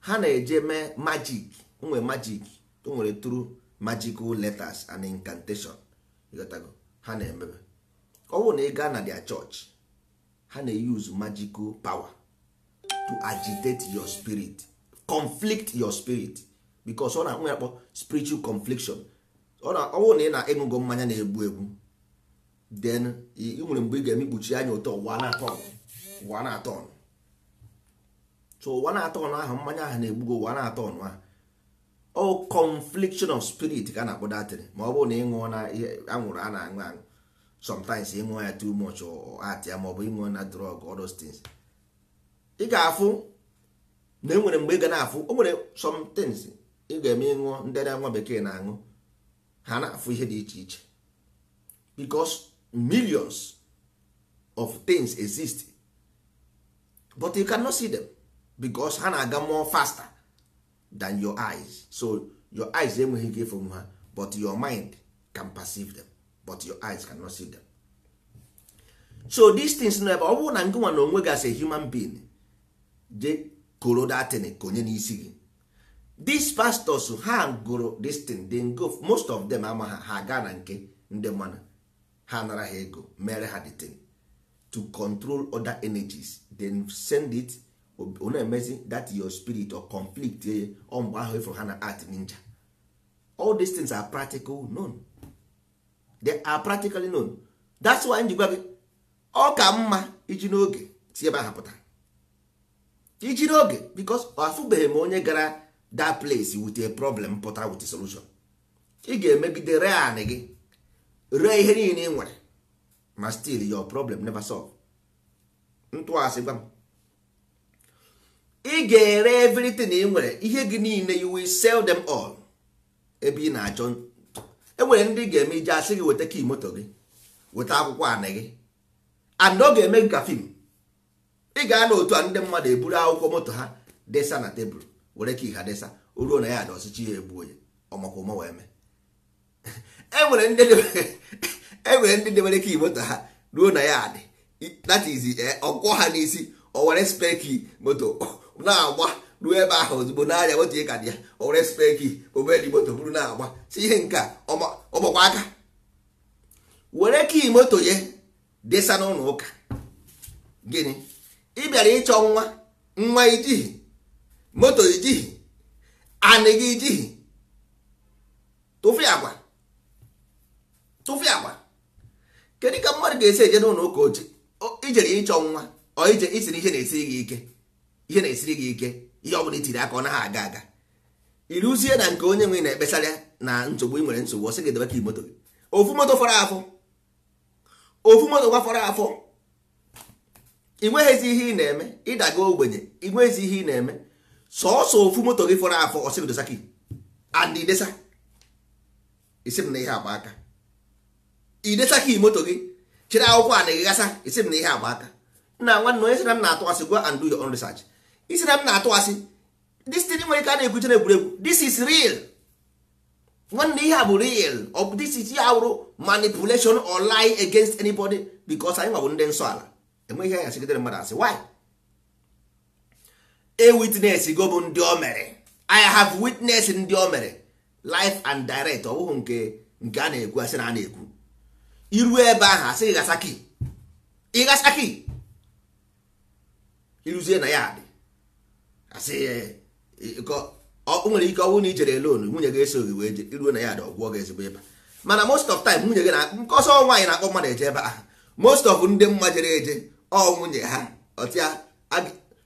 ha na-eje mee magic nwere magic nwere true magical letters and incantation ha na-emebe owu na ịga na their church ha na-use magical power to agitate your spirit conflict your spirit because ọ na-akpọ ya akpọ spiritual confliction ọ bụrụ na ị na-eṅụgo mmanya na-egbu egbu then ị nwere mgbe ị ga-eme anya ụtọ ụwa na-atọ ụwa so ụwa na ahụ mmanya ahụ na-egbugo ụwa na-atọ ọnụ ahụ o confliction of spirit ka a na-akpọ datịrị ma ọ bụrụ na ịṅụọ na anwụrụ a na-aṅụ aṅụ sometimes ịṅụọ ya too much atịa ma ọ bụ ịṅụọ na drug all those ị ga-afụ na enwere mgbe ị ga na-afụ o nwere somethings ị ga-eme ịṅụọ ndị nwa bekee na-aṅụ ha na-afụ ihe dị iche iche because millions of things exist but you cannot see them because ha na-aga more faster than your eyes so your eyes enweghị ike ịfụ ha but your mind can perceive them but your eyes cannot see them so these things nọ ebe ọ bụrụ na ngị na onwe gị as a human being koro datin konye n'isi gị these pastors ha gụrụ destin then go most of them ama ha ha gaa na nke ndị mmanụ ha nara ha ego mere ha detin to control other energies then send it ọ emezi that your spirit or conflict ye eh, ọ ahụ ịfụrụ ha na art ninja all these things are practical known they are practically known that's why njikwa gị ọ ka mma iji n'oge tie ebe ahapụtara ijiri oge because afụbeghị m onye gara that place with a problem pụta with solution ị ga-emegide ree anị gị ree ihe niile ị nwere ma still your problem never solve ntụasị gwa m ị ga-ere everything ị nwere ihe gị niile you will sell them all ebe ị na-achọ enwere ndị ga-eme ije asị gị weta kii moto gị weta akwụkwọ anị gị and ọ ga-eme gị ka fim ị ga na otu a ndị mmadụ eburu akwụkwọ moto ha desa na tebụl were ka ịha desa o ruo na ya ada ọsịchị ya egbuo ya ọmakwụma wee mee enwere ndị e ndị debere ka moto ha ruo na ya adị that is e, ọkwọ ha n'isi o were speki moto na-agba ruo ebe ahụ ozugbo n'anya moto ị ka dị ya o were speki obedi moto bụrụ na-agba si ihe nke ọgbakwa aka were kii moto ya desa n'ụlọ ụka gịnị ị bịara ịchọ nwa nwa ijighi moto ijighi anị gị ijighi tụfụ agwa tụfụ agwa kedu ka mmadụ ga-esi eje n'ụlọ ụka oche ijere ịchọ nwa ọ ije isi na ihe na-esiri gị ike ihe na-esiri gị ike ihe ọ bụla itiri aka ọ naghị aga aga ịrụzie na nke onye nwe na-ekpesara na nsogbu ị nwere nsogbu ọ sị gị debe ka moto gị ofu moto fọrọ afọ ofu moto gwa fọrọ afọ ị nweghịzi ihe ị na-eme ịdaga ogbenye ị nweghịzi ihe ị na-eme sọọsọ ofu moto gị fọrọ afọ ọsịgdosaki and idesa isi m na ihe agba aka idesa moto gị chere akwụkwọ a na-eghegasa isi m na ihe agba aka nna nwanne onye sị na m na-atụ asị gwa and do your own research isi na m na-atụ asị nwere ike a na-ekwuche na egwuregwu this is real nwanne ihe a bụ real ọ this is ya wụrụ manipulation or lie against anybody because anyị nwa bụ ndị nsọ ala eme ihe anya sigidere mmadụ asị why a witness go bụ ndị o mere i have witness ndị o mere life and direct ọ bụghị nke nke a na-ekwu asị na a na-ekwu iru ebe ahụ asị gị gasaki ịgasaki iruzie na ya dị asị o nwere ike ọnwụ na i jere lonu nwunye gị eso gị wee iruo na ya dị ọgwụọ gị ezigbo ebe mana most of time nwunye gị na nke ọsọ nwaanyị na-akpọ mmadụ eje ebe ahụ most of ndị mma jere eje ọ nwunye ha ọtịa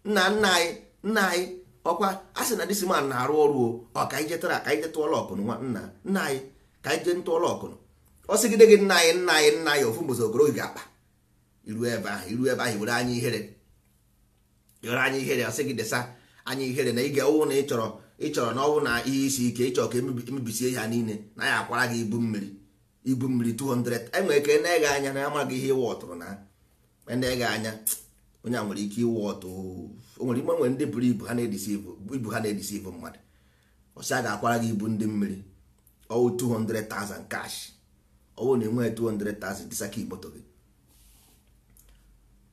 nna nna anyị nna anyị ọkwa a sị na disman na-arụ ọrụ o ọ ka anyị jetara ka anyị jetụọla ọkụnụ nwa nna nna anyị ka anyị jee ntụọla ọkụnụ ọ sịgide gị nna anyị nna anyị nna anyị ofu mbozi ogoro ga akpa iru ebe ahụ iru ebe ahụ were anya ihere were anya ihere ọ sị gị desa anya ihere na ịga ọwụ na ị chọrọ ịchọrọ na ọwụ na ihe isi ike ịchọrọ ka emebisie e ha niile na ya akwara gị ibu mmiri ibu mmiri 200 enwere ka na ege anya na amaghị ihe ịwa ọtụrụ na ndị ga anya onye a nwere ike ịwụ ọtụ o nwere ime nwere ndị buru ibu ha na-edisi ibu mmadụ ọsị a ga-akwara gị ibu ndị mmiri ọwụ 200,000 cash ọwụ na enweghị 200,000 dịsaka ikpoto gị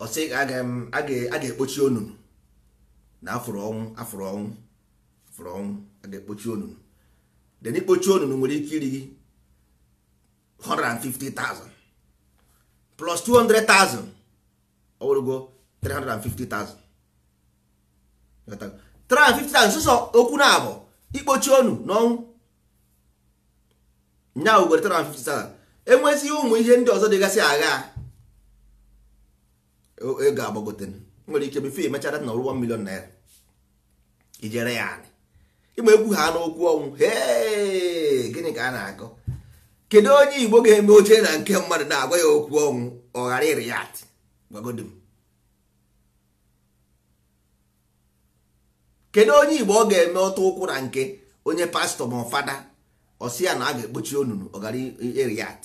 ọsị a ga-ekpochi onunu na afụrụ ọnwụ afụrụ ọnwụ afụrụ ọnwụ a ga-ekpochi onunu den ikpochi onunu nwere ike iri gị 150,000 plus 200,000 ọwụrụgo 350,000 350,000 sụsọ okwu na abụ ikpochi onu n'ọnwụ nya wugoro 350,000 enwezi ụmụ ihe ndị ọzọ dịgasị agha ego e agbagote nwere ike befe emechara na ọrụ 1 million naira ijere ya anị ịgba egwu ha n'okwu ọnwụ gịnị ka a na-akọ kedu onye igbo ga-eme oche na nke mmadụ na-agwa ya okwu ọnwụ ọ ghara iri atị. kedu onye igbo ọ ga-eme ọtọ ụkwụ na nke onye pastọ ma fada ọsị ya na a ga-ekpochi onunu ọgara eriat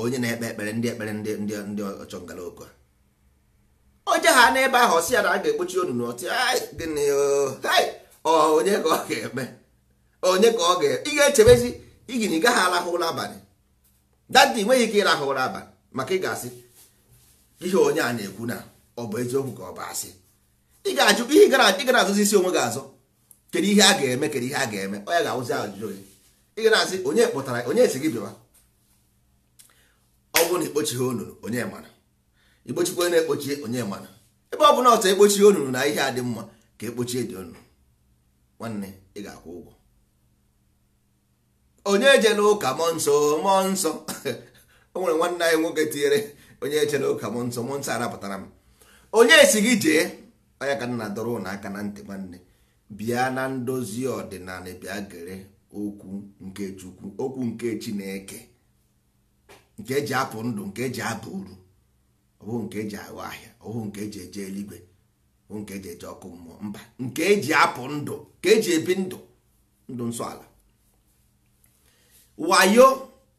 onye na-ekpe ekpere ndị ekpere ndị ndị ọchọngala oko onye ha n'ebe ahụ ọsị ya na a ga-ekpochi onunu ọtị gịnị onye ka ọ ga-eme onye ka ọ ga-ị ga-echebezi igini gaghị arahụ ụra abalị dadi nweghị ike ịrahụ ụra abalị maka ị ga-asị ihe onye a na-ekwu na ọ bụ eziokwu ka ọ bụ asị ị ga-ajụ ihe gara azụzi isi onwe gị azụ kedu ihe a ga-eme kedu ihe a ga-eme onye ga-awụzi ajụjụ gị ị ga na-asị onye kpọtara onye si gị bịawa ọ bụrụ na ikpochighị onunu onye mara ikpochikwa onye na-ekpochi onye mara ebe ọ bụla ọtọ ekpochighị onunu na ihe a dị mma ka ekpochie dị onunu nwanne ị ga-akwụ ụgwọ onye jela ụka mọ nsọ mọ nsọ [laughs] o nwere nwanne anyị nwoke tinyere onye eche na ụka m nsọ m nsọ arapụtara m onye si gị jee onye ka nna dọrọ ụnụ aka na ntị nwanne bịa na ndozi ọdịnala bịa gere okwu nke chukwu okwu nke chineke nke eji apụ ndụ nke eji aba uru ọbụ nke eji aghọ ahịa ọbụ nke eji eje eluigwe ọbụ nke eji eje ọkụ mmụọ mba nke eji apụ ndụ nke eji ebi ndụ ndụ nsọ ala wayo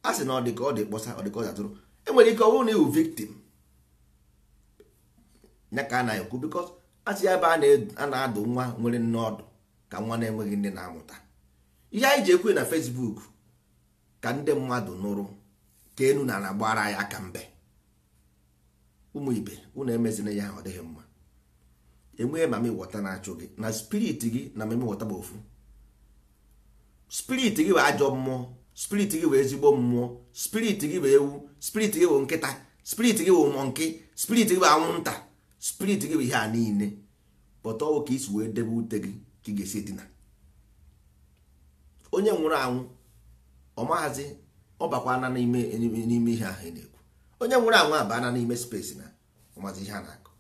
a sị na ọ dị ka ọ dị kpọsa ọ dị ka ọ dị atụrụ enwere ike ọ bụrụ na ịwụ victim ya ka a na-ekwu bikọ asị ya ebe a na-adụ nwa nwere nne ọdụ ka nwa na-enweghị nne na-amụta ihe anyị ji ekwe na Facebook ka ndị mmadụ nụrụ ka enu na na gbara ya aka mbe ụmụ ibe unu emezina ya ọ dịghị mma enweghị ma mịwọta na-achụ gị na spirit gị na mmemme bụ ofu spirit gị bụ ajọ mmụọ spirit gị bụ ezigbo mmụọ spirit gị bụ ewu spirit gị bụ nkịta spirit gị bụ mọnkị spirit gị bụ anwụnta spirit gị bụ ihe a niile pọta ọwụ ka isi wee debe ute gị ka ị ga-esi dina onye nwụrụ anwụ ọ mahazi ọ bakwa na n'ime n'ime ihe ahụ na-ekwu onye nwụrụ anwụ abana n'ime space na ọmazi ihe a na-akụ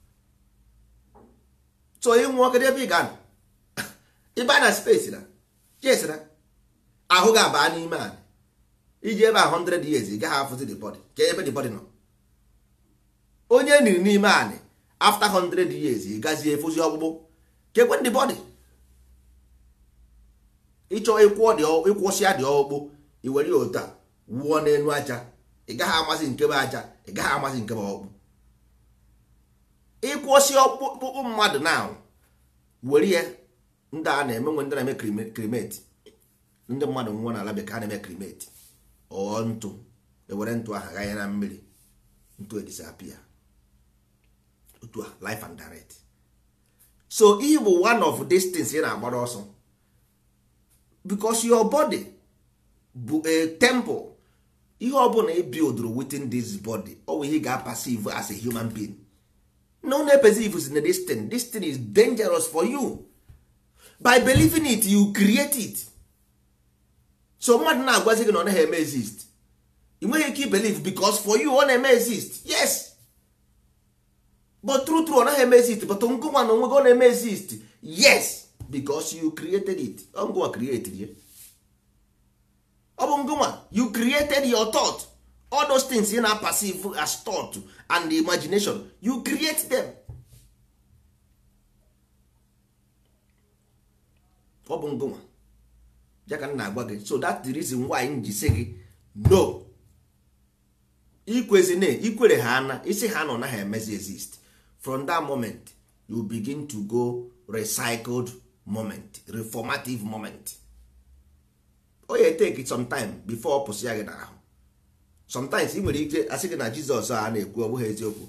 so ịnwụọ kedụ ebe ị ga-anọ [laughs] ịba na space na jesira ahụ ga abaa n'ime anyị iji ebe a 100 years gaghị afụzi the body ka ebe the body nọ onye niri n'ime anị after 100 years gazie efozi ọgbụgbụ kekwe the body ịchọ ịkwụsịa dị ọkpụkpụ iwere ya otu a n'elu aja ị gaghị amasị nkebe aja ị gaghị amasị nkebe ọgbụ ịkwụsị ọkpụkpụ mmadụ na were ya ndị a na-eme nwe ndị na-eme krimeti ndị mmadụ nwụọ n'ala bekee a na-eme krimeti ọ ntụ ewere ntụ ahụ ganye na mmiri ntụ e disappear otu a life and direct so ihe bụ one of these things ị na-agbara ọsọ because your body bụ a temple ihe ọbụla ị buildụrụ within this body ọwụ ihe ga-apasive as a human being no na is na this thing this thing is dangerous for you by believing it you create it so mmadụ na-agwazi gị na ọ naghị eme exist ị nweghị ike belief because for you ọ na-eme exist yes but true true ọ naghị eme exist but ngụnwa na onwe gị ọ na-eme exist yes because you created it ngụnwa created ya ọ bụ ngụnwa you created your thought all those things you na perceive as thought and imagination you create them ọ bụ ngụnwa ya ka m na-agwa gị so that's the reason why m ji si gị no ikwezi na ikwere ha ana isi ha nọ na ha emezi exist from that moment you begin to go recycled moment reformative moment o oh ya take sometime before ọ pụsị ya gị n'ahụ sometimes i nwere ike asị gị na Jizọs a na-ekwu ọ bụghị eziokwu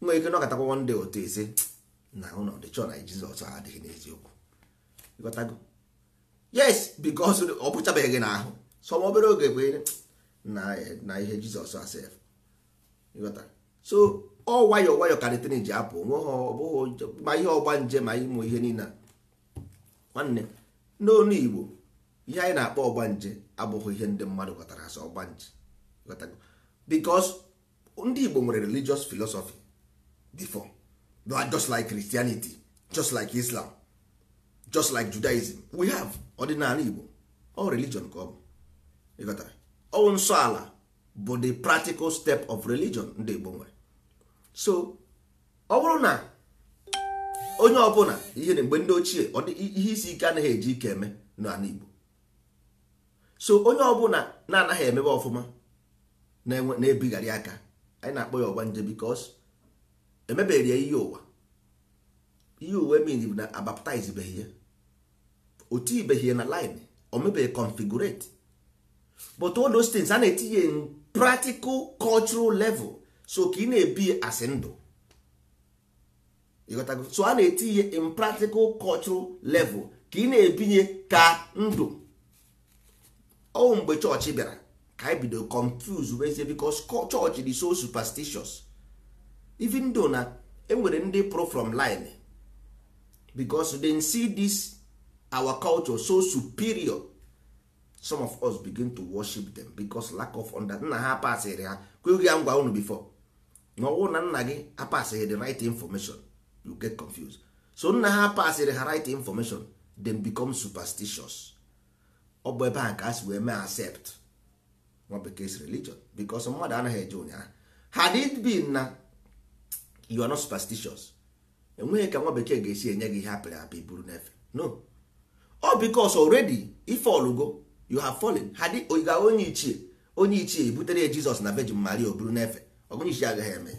nwere ike one nde otu ezi na ụlọ dịchọ na Jizọs adịghị n'eziokwu yes because ọ pụchabeghị n'ahụ sọm obere oge bụ na ihe jizọs asef so ọ nwayọ nwayọ karịtịrị ji apụ nwe ma ihe ọgba nje ma ịmụ ihe niile nwanne n'onu igbo ihe anyị na-akpọ ọgba nje abụghị ihe ndị mmadụ ghọtara asọ ọgba nje because ndị igbo nwere religious philosophy before just like christianity just like islam just like judaism we have ọdịnala Igbo ọ religion ka ọ bụ ọwụ nsọ ala bụ the practical step of religion ndị Igbo nwere so ọ bụrụ na onye ọbụla ihe na mgbe ndị ochie ihe isi ike anaghị eji ike eme n'ala Igbo so onye ọbụla na-anaghị emebe ọfụma na-ebigharị aka anyị na-akpọ ya ọgbanje because emebeghị ya ihe ụwa ihe ụwa emiri na abaptizebeghị ya o tinyebeghị na line o mebeghị configurate but all those things a na-etinye in practical cultural level so ka ị na-ebi asị ndụ so a na-etinye in practical cultural level ka ị na-ebinye ka ndụ ọ mgbe chọọchị bịara ka anyị bido confuse wezie because chọọchị dị so superstitious even though na enwere ndị pro from line because they see this our culture so superior some of us begin to worship them because lack of nna ha apasịghị ha kweghị ya ngwa unu before na ọwụ na nna gị apasịghị the right information you get confused so nna ha apasịrị ha right information then become superstitious ọ bụ ebe a ka asị si wee mee accept nwa bekee's religion because mmadụ anaghị eje ụnyaahụ had it been na you are not superstitious enweghị ka nwa bekee ga-esi enye gị ihe apịrị apị buru n'efe no ọ bikos already ife ọlụgo you have fallen ha dị oyiga onye ichie onye ichie ebutere ya jizọs na vejin maria o n'efe ọgonye ichie agaghị eme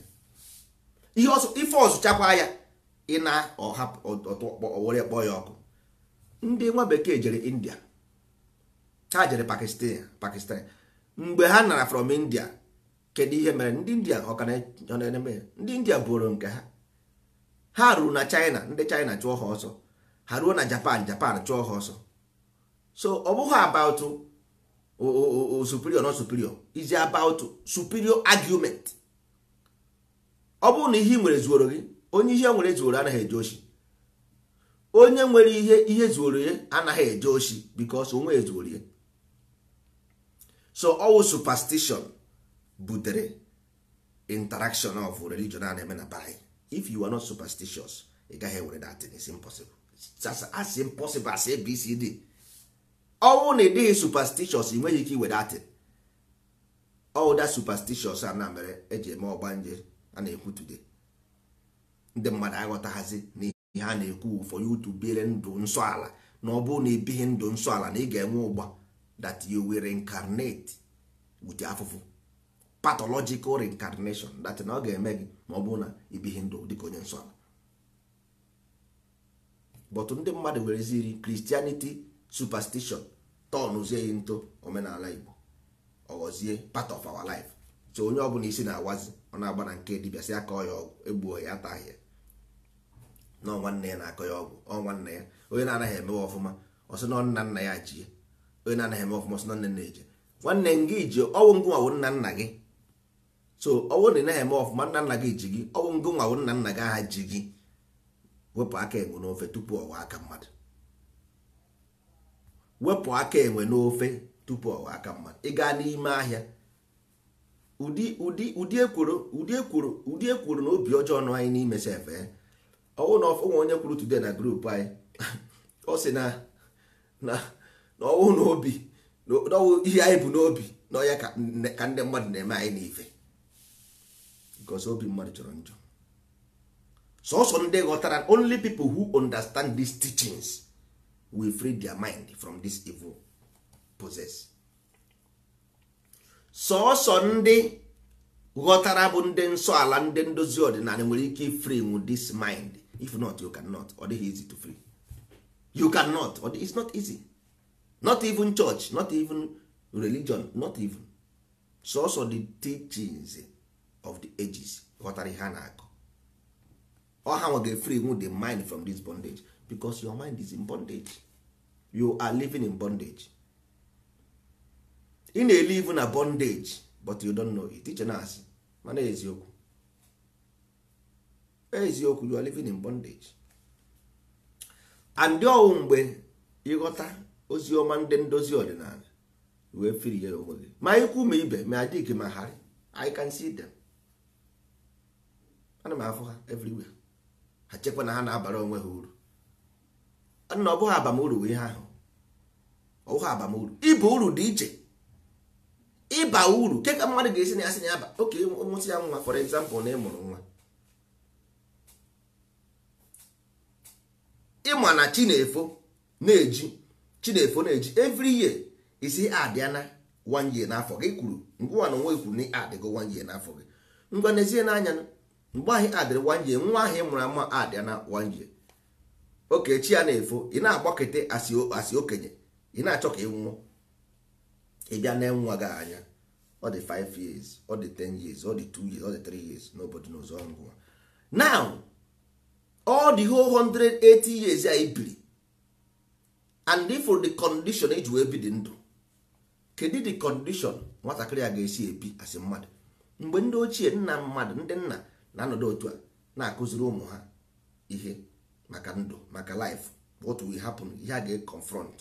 ihe ife ọzụchakwa ya ịna ọwere kpọọ ya ọkụ ndị nwa bekee jere india ha jere pakistan mgbe ha nara from india kedu ihe mere ndị india ọkana ndị india bụrụ nke ha ha ruru na china ndị china chụọ ha ọsọ ha ruo na japan japan chụọ ha ọsọ so ọ bụghị about superior not superior is about superior argument ọ bụrụ na ihe ị nwere zuoro gị onye ihe nwere zuoro anaghị eje oshi onye nwere ihe ihe zuoro anaghị eje oshi bikos onwe ya zuoro ya so ọwụ superstition butere interaction of religion a na-eme na if you are not superstitious ị gaghị enwere that thing is impossible asị impossible asị abcd ọnwụ na ịdịghị superstitious nweghị ike iwere atị ọwụda superstitious a na mere eji eme ọgbanje a na-ekwu today ndị mmadụ aghọtaghazi na ihe a na-ekwu ụfọdụ otu to ndụ nsọ ala na ọ bụrụ na ibighị ndụ nsọ ala na ị ga-enwe ụgba that you will reincarnate with afụfụ pathological reincarnation that na ọ ga-eme gị ma ọ bụrụ na ibighị ndụ dịka onye nsọ ala but ndị mmadụ nwere ezi wereziri Christianity superstition tọnụzie ya nto omenala Igbo ọghọzie part of our life so onye ọbụla isi na-awazi ọ na-agba na nke dibịa sị akọ ya ọgwụ egbuo ya ataghị ya na nwanne ya na-akọ ya ọgwụ ọ nwanne ya onye na-anaghị emewe ọfụma ọsị na nna nna ya jie onye na-anaghị eme ọfụma ọsị na nne nna eje nwanne gị ji ọnwụ ngụ nwawo nna nna gị so ọnwụ na ị naghị eme ọfụma nna nna gị ji gị ọnwụ ngụ nwawo nna nna gị aha ji gị wepụ aka enwe n'ofe tupu ọwa aka mmadụ wepụ aka enwe n'ofe tupu ọwa aka mmadụ ị gaa n'ime ahịa ụdị ụdị ụdị ekworo ụdị ekworo ụdị ekworo na obi ọjọọ anyị n'ime sefe eh? ọwụ na ọnwe onye kwuru today na grupu anyị [laughs] ọ sị na na ọwụ ihe anyị bụ n'obi na ọya ka ndị mmadụ na-eme anyị n'ife because obi mmadụ chọrọ njọ sọsọ ndị ghọtara only people who understand these teachings will free their mind from this evil possess sọsọ ndị ghọtara bụ ndị nsọ ala ndị ndozi ọdịnala nwere ike free this mind if not you cannot ọ dịghị easy to free you cannot ọ it's not easy not even church not even religion not even sọsọ the teachings of the ages ghọtara ihe a na-akọ ọha nwa ga-efree wu the mind from this bondage because your mind is in bondage you are living in bondage ị na live na bondage but you don't know it iche na-asị mana eziokwu eziokwu you are living in bondage and ọwụ mgbe ịghọta ozi ọma ndị ndozi ọdịnala wee firie onwe gị ma ikwu ma ibe ma adịghị ma harị I can see them ana m afụ ha everywhere ha chekwa na ha na-abara onwe ha uru na ọ bụghị abamuru ihe ahụ ọ bụghị abamuru ịba uru dị iche ịba uru ke ka mmadụ ga-esi na ya na ya ba oke mụsị ya nwa for example na ịmụrụ nwa ịma na chinefo na-eji chinefo na-eji every year isi adịa one year n'afọ gị kwuru ngwa na onwe kwuru na adịgo one year n'afọ gị ngwa n'ezie n'anya mgbe ahụ adịrị wanje nwa ahụ mụrụ ama adịa na wanje okechi ya na-efo ị na-agbakete asị okenye ị na-achọ ka ị nwụọ ịbịa na nwa gị anya ọ dị 5 years ọ dị 10 years ọ dị 2 years ọ dị 3 years n'obodo n'ụzọ ngwa now ọ dị whole 180 years ya ibiri and for the condition eji wee bi dị ndụ kedu the condition nwatakịrị a ga-esi ebi asị mmadụ mgbe ndị ochie nna mmadụ ndị nna na-anọdụ otu a na-akụziri ụmụ ha ihe maka ndụ maka life what will happen ihe a ga-confront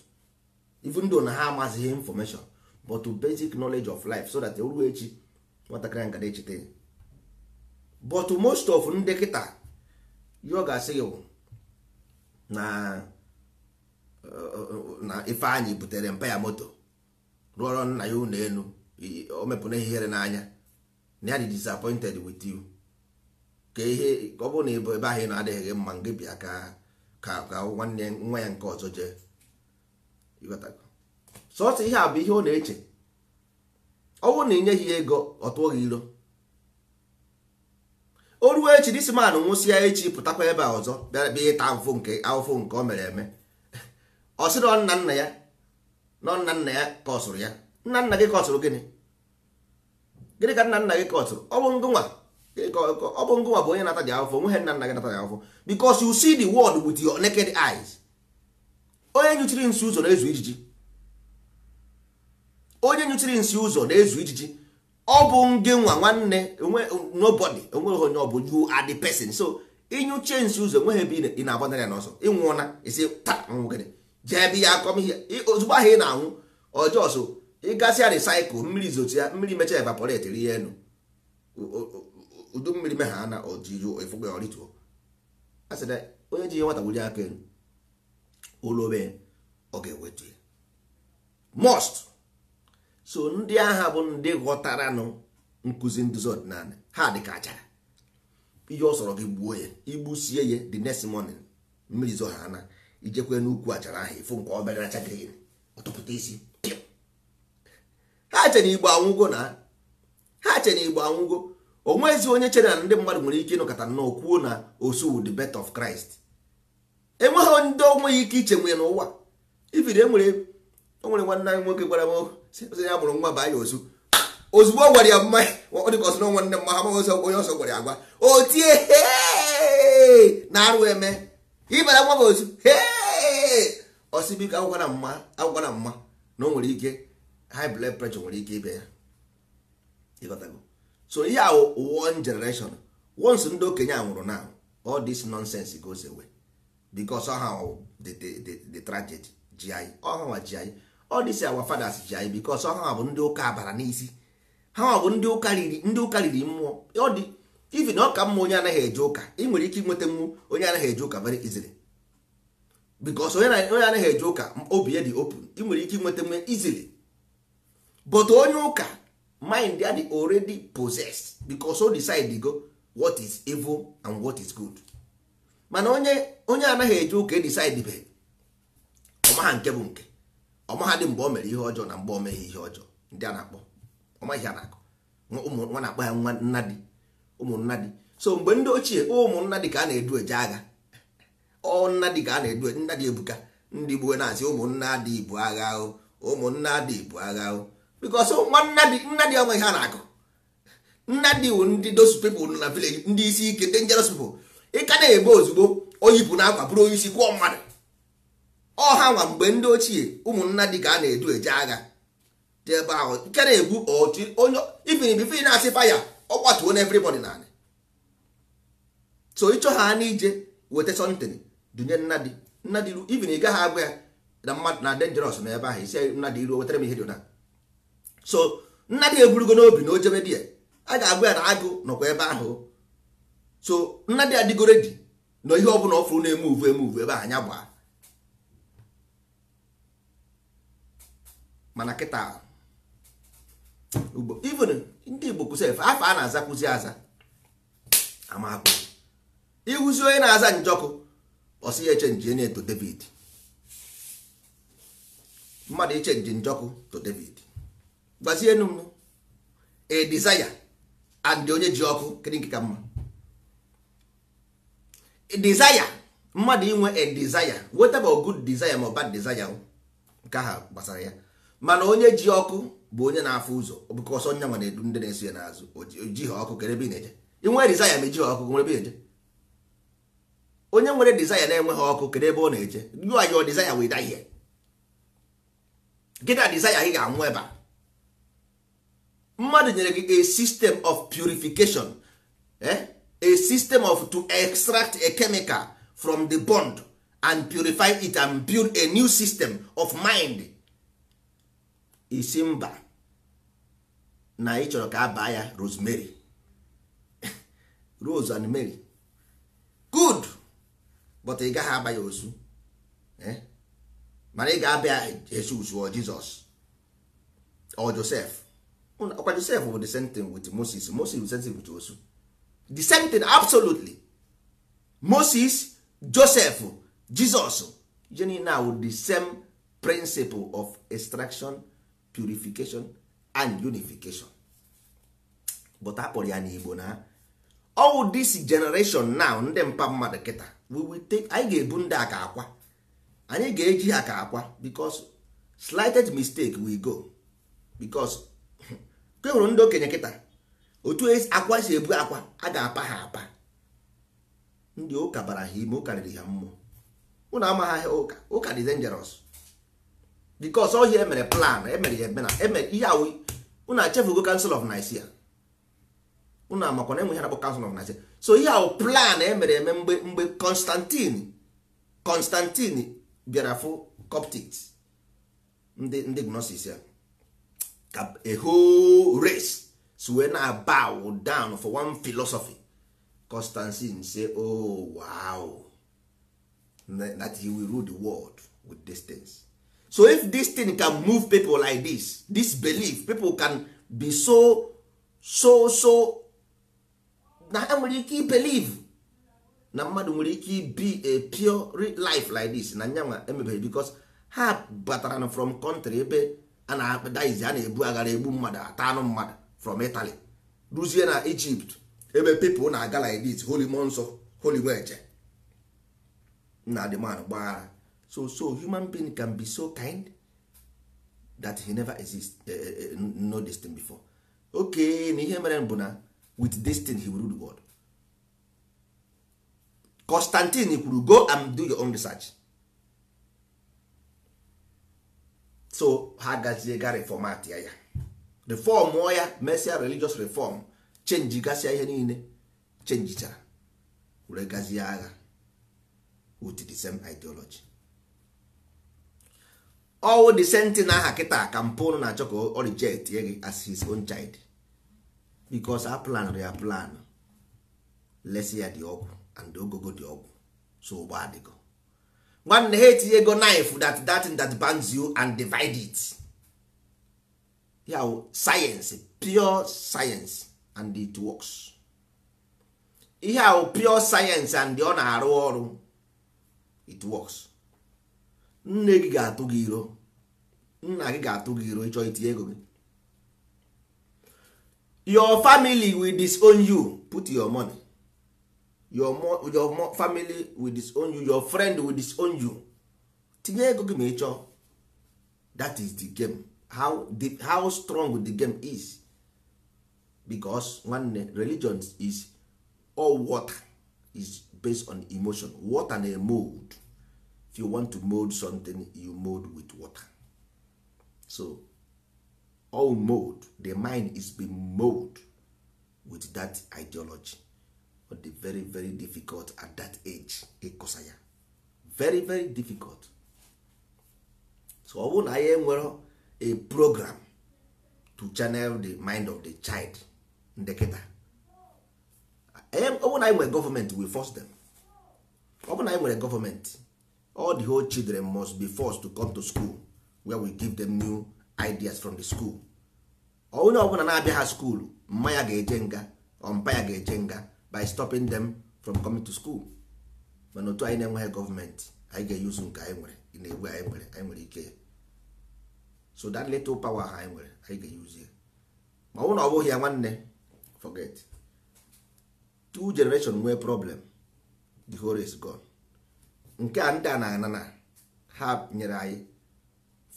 even ndụ na ha amazighị infọmeshọn but basic knowledge of life so that ruo echi nwatakịrị nga echeta ya but most of ndị kịta ọ ga-asị gị na na anyị butere mpa ya moto rụọrọ nna ya ụlọ elu o ihere n'anya na ya dị disappointed with you ka ihe ọ bụrụ na ịbụ ebe ahụ ị na-adịghị gị mma gị bịa ka ka nwanne nwa ya nke ọzọ jee sọsọ ihe a bụ ihe ọ na-eche ọ bụrụ na ị nyeghị ego ọ tụọ gị ilo o ruo echi disiman nwụsịa echi pụtakwa ebe a ọzọ bịa bịa ịta ahụfụ nke ahụfụ nke o mere eme ọ sị na nna nna ya na nna nna ya kọsụrụ ya nna nna gị kọsụrụ gịnị gịnị ka nna nna gị kọsụrụ ọ bụ nwa. ọ bụ ngụwa bụ onye nata dị afọ nweghị nna nna gị nata dị afọ because you see the world with your naked eyes onye nyụchiri nsi ụzọ na-ezu ijiji onye nyụchiri nsi ụzọ na-ezu ijiji ọ bụ ngị nwa nwanne nobody enweghị onye ọ bụ you are the person so ịnyụchie nsi ụzọ enweghị ebe ị na-agbanarị ya n'ọsọ ịnwụọna isi taa nwụgịrị jee ebe ya akọm ihe ozugbo ahụ ị na-anwụ ọjọọ so ịgasịa recycle mmiri zotu ya mmiri mechaa evaporate rie elu udu mmiri me ha na ojijuo ifụgbe orituo a sị na onye ji ihe nwata wuli aka elu olobe ọ ga-ewetu ya most so ndị agha bụ ndị ghọtaranụ nkụzi nduzi ọdịnala ha dị achara ihe ọ sọrọ gị gbuo ya igbusie ya the next morning mmiri zo ha na ijekwe n'ukwu achara ahụ ịfụ nke obere acha green ọtụpụta isi ha chere igbo anwụgo na ha chere igbo anwụgo onwezi onye chere na ndị mmadụ nwere ike ịnọkọta nnọọ kwuo na osu the birth of Christ enweghị ndị onweghị ike iche nwee n'ụwa ifiri enwere onwere nwanne anyị nwoke gwara m oh, ya mụrụ nwa baa ya osu ozugbo ọ gwara ya mma ọ dịka ọsọ nne m ha ọzọ onye ọsọ gwara ya agwa o tie na arụ eme ịbara nwa m osu osibika agwara mma agwara mma na o nwere ike high blood pressure nwere ike ịbịa ya ịghọtago so ihe a one generation once ndị okenye a nwụrụ na all this nonsense goes away because ha the, the, the tragedy ji anyị ọhanwa ji anyị all this our fathers ji anyị because ọhanwa bụ ndị ụka abara n'isi ha bụ ndị ụka riri ndị ụka riri mmụọ ọ dị even ọ mma onye anaghị eje ụka ị nwere ike ịnweta mmụọ onye anaghị eje ụka very easily because onye anaghị eje ụka obi ya dị open ị nwere ike ịnweta mmụọ easily but onye ụka mind ya dị already possessed because o decide go what is evil and what is good mana onye onye anaghị eje ụka e decide be ọmaha nke bụ nke ọmaha dị mgbe o mere ihe ọjọọ na mgbe o meghị ihe ọjọọ ndị a na-akpọ ọmaghị ha na-akọ nwa na-akpọ ya nwa nnadi. di so mgbe ndị ochie ụmụnna dị ka a na-edu eje agha ọ nna dị ka a na-edu e, nna dị ebuka ndị gbuo na-asị ụmụnna dị ibu agha ahụ ụmụnna dị ibu agha ahụ bikos nna dị onwe ha na-akụ nna dị wu ndị those nọ na village ndị isi ike dangerous bụ. Ịka na-ebe ozugbo oyipụ na akwa bụrụ onye isi kwụọ mmadụ ọha nwa mgbe ndị ochie ụmụnna dị ka a na-edu eje agha dị ebe ahụ nke na-egbu otu onye ifin bifin na-asị faya ọ kwatuo na everybody na so ịchọ ha n'ije weta something dunye nna dị nna dị ifin ị gaghị agwa ya na mmadụ na dangerous na ebe ahụ isi nna iruo wetara m ihe dị so nna dị eburugo n'obi na ojebe di ya a ga agụ ya na agụ nọkwa ebe ahụ so nna dị adịgoro di na ihe ọbụla ọ fụrụ na-eme uvu eme uvu ebe ahụ anya gbaa mana kịta ugbo even ndị igbo kwụsịrị afọ a na-aza aza amakpụ ịhụzi onye na-aza njọkụ ọsị ya echenji enye to david mmadụ nje njọkụ to david gbazie enu m a desire and onye ji ọkụ kedu nke ka mma desire mmadụ inwe a desire weta ma good desire ma bad desire nke ha gbasara ya mana onye ji ọkụ bụ onye na-afụ ụzọ ọbụkọ ọsọ nya nwere na-edu ndị na-eso ya n'azụ oji ha ọkụ kere ebe ị na-eje inwe desire ma eji ha ọkụ nwere ebe na-eje onye nwere desire na-enwe ha ọkụ kere ebe ọ na-eje you are your desire will die here gịta desire ị ga-anwụ ebe a mmadụ nyere gị a system of purification eh? a system of to extract a chemical from the bond and purify it and build a new system of mind isimba na ị chọrọ ka baa ya rosemary [laughs] rose and mary good but ị gaghị agba ya ozu eh? mana ị ga-abịa Jesus or Jesus or Joseph ọkwa josef bụ the same thing with moses moses is sensitive to osu the same thing absolutely moses joseph jesus je na awụ the same principle of extraction purification and unification but a kpọrọ ya n'igbo na all this generation now ndị mpa mmadụ kịta we will take anyị ga-ebu ndị aka akwa anyị ga-eji aka akwa because slightest mistake we go because ka hụrụ ndị okenye kịta otu e akwa si ebu akwa a ga-apa ha apa ndị ụka bara ha ime ụka riri ha mmụọ ụnụ amaghị ha ụka ụka dị dangerous because ọhịa emere plan emere ya eme na emere ihe awụ ụnụ achefugo kansụl of Nicaea ụnụ amakwa na enweghị na-akpọ council of Nicaea so ihe awụ plan emere eme mgbe mgbe Constantine Constantine bịara fụ Coptics ndị ndị gnosis ya ka a whole race so wee na bow down for one philosophy constantine say oh wow that he will rule the world with distance. things so if this thing can move people like this this belief people can be so so so na ha nwere ike believe na mmadụ nwere ike be a pure life like this na nyanwa emebere because ha batara from country ebe a na-akpadaizi a na-ebu aghara egbu mmadụ ata anụ mmadụ from Italy ruzie na Egypt ebe people na-aga like holy mmụọ holy nweje na man gbaghara so so human being can be so kind that he never exist eh, eh, eh, no this thing before okay na ihe mere bụ na with destiny he will rule the world Constantine kwuru go and do your own research so ha gazie ga reform ya ya reform ya mesia religious reform chenji gasịa ihe niile chenjicha were gazie agha with the same ideology ọwụ the senti na aha kịta ka mpụ na-achọ ka gị as his own child because a plan ya plan lesi ya dị ọgwụ and ogogo dị ọgwụ so ụgbọ adịgo nwanne ha etinye ego knife that that thing that bans you and divide it ya wụ sayensị pure science and it works ihe a pure science and ọ na-arụ ọrụ it works nne gị ga-atụ gị iro nna gị ga-atụ gị iro ịchọ itinye ego gị your family will disown you put your money your more, your more family will disown you your friend will disown you tinye ego gị ma ị chọọ that is the game how, the, how strong the game is because nwanne religion is all water is based on emotion water na mold if you want to mold something you mold with water so all mold the mind is being mold with that ideology ọ dị very very difficult at that age ịkụsa ya very very difficult so ọ bụrụ na anyị enwere a program to channel the mind of the child ndị kịta ọ bụrụ na anyị nwere gọọmenti we force them ọ bụrụ na anyị nwere gọọmenti all the whole children must be forced to come to school where we give them new ideas from the school ọ bụrụ na-abịa ha school mma ya ga-eje nga ọmpa ya ga-eje nga by stopping them from coming to school mana otu anyị na-enweghị gọọmenti anyị ga-eyuzu nke anyị nwere na-egbu anyị nwere anyị nwere ike so that little power ha anyị nwere anyị ga-eyuzi ma ọ bụrụ na ọ bụghị ya nwanne forget two generation nwee problem the whole is gone nke a ndị a na anana ha nyere anyị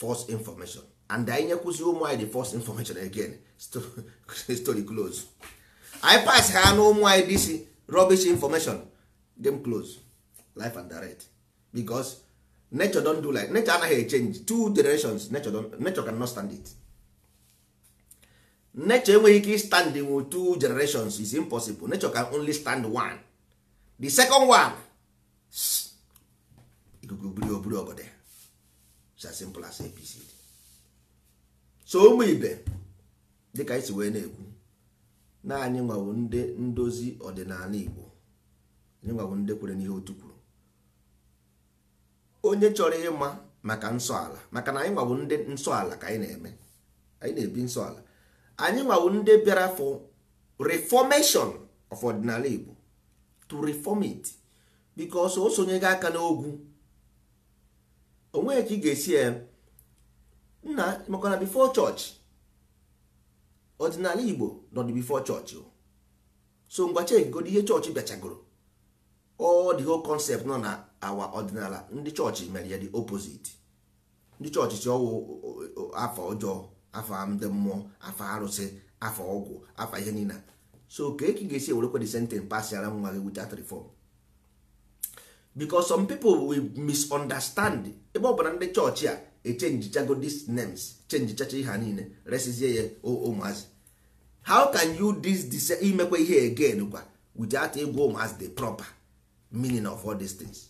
false information and anyị nyekwuzi ụmụ anyị the false information again [laughs] story close anyị pass ha na ụmụ anyị dc rubbish information dem close life and direct because nature don do like nature anaghị change two generations nature, can not stand it nature enweghị ike standing with two generations is impossible nature can only stand one the second one ikuku buru oburu obodo it's as simple as APC. so ụmụ ibe dịka anyị si wee na-ekwu na anyị nwawo ndị ndozi ọdịnala Igbo anyị nwawo ndị kwere n'ihe otu kwuru onye chọrọ ịma maka nsọ ala maka na anyị nwawo ndị nsọ ala ka anyị na-eme anyị na-ebi nsọ ala anyị nwawo ndị bịara for reformation of ọdịnala Igbo to reform it because o sonye gị aka n'ogwu onweghị ka ị ga-esi eh, nna maka na before church ọdịnala igbo nọ dị bifo chọọchị so ngwa chekigodo ihe chọọchị bịachagoro ọ dị ho concept nọ na awa ọdịnala ndị chọọchị mere ya dị opposite ndị chọọchị chi ọwụ afọ ọjọọ afọ ndị mmụọ afọ arụsị afọ ọgwụ afọ ihe niile so ka e ga-esi ewerekwa the sentence pasiara nwa gị without reform because some people will misunderstand ebe ọ bụla ndị chọọchị a echenjichago these names chenjichacha ihe niile resizie oh, oh, ya ụmụazị how can you dis imekwa ihe again kwa without ịgwa ụmụazị the proper meaning of all these things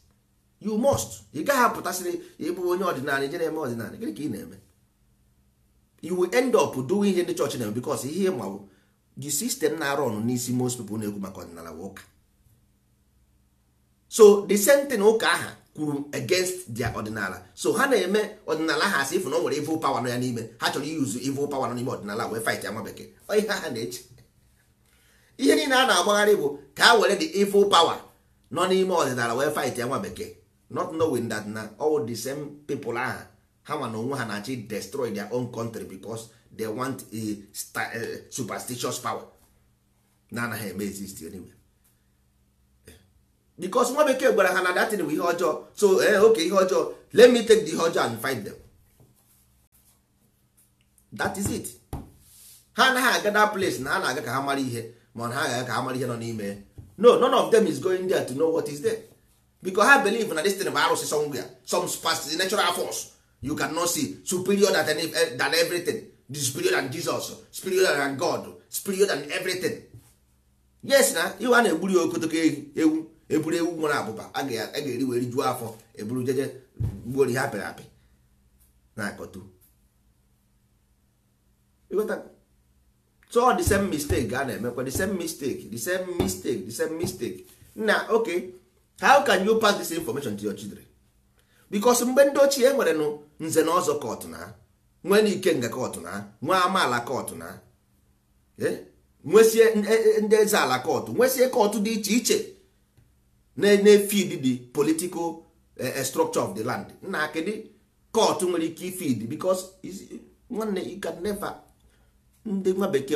you must ị gaghị apụtasịrị ịbụ onye ọdịnala ije na-eme ọdịnala gịnị ka ị na-eme you will end up doing ihe ndị chọọchị na-eme because ihe mawụ the system na-arụ ọnụ n'isi most people na egwu maka ọdịnala ụka so the same thing ụka aha kwuru against their ọdịnala so ha na-eme ọdịnala ha asị ifu na o nwere evil power nọ ya n'ime ha chọrọ iyuzu evil power nọ n'ime ọdịnala wee fight ya nwa bekee ihe ha na-eche ihe niile a na-agbagharị bụ ka ha were the evil power nọ n'ime ọdịnala wee fight ya nwa bekee not knowing that na all the same people ahụ ha nwa na onwe ha na-achị destroy their own country because they want a eh, superstitious power na anaghị eme exist anyway because nwa bekee gwara ha na datin bụ ihe ọjọọ so ee eh, oke ihe ọjọọ let me take the ihe ọjọọ and find them that is it ha anaghị aga that place na ha na-aga ka ha mara ihe ma na ha ga-aga ka ha mara ihe nọ n'ime no none of them is going there to know what is there because ha believe na this thing bụ arụsị somewhere some past natural force you can cannot see superior than, eh, than everything superior than Jesus superior than God superior than everything yes na iwe a na-egburi okotoko ewu eburu ewu nwere abụba a ga-eri wee rijuo afọ eburu jeje gbuori ha apịrị apị na akọtu so the same mistake ga na-emekwa the same mistake the same mistake the same mistake na ok how can you pass this information to your children because mgbe ndị ochie nwere nụ nze na ọzọ kọtụ na nwee n'ike nga kọtụ na nwee amaala kọtụ na eh, nwesie e, e, ndị eze ala kọtụ nwesie kọtụ dị iche iche na-efid the political eh, eh, structure of the land nna akịdị court nwere ike ifid because nwanne you can never ndị nwa bekee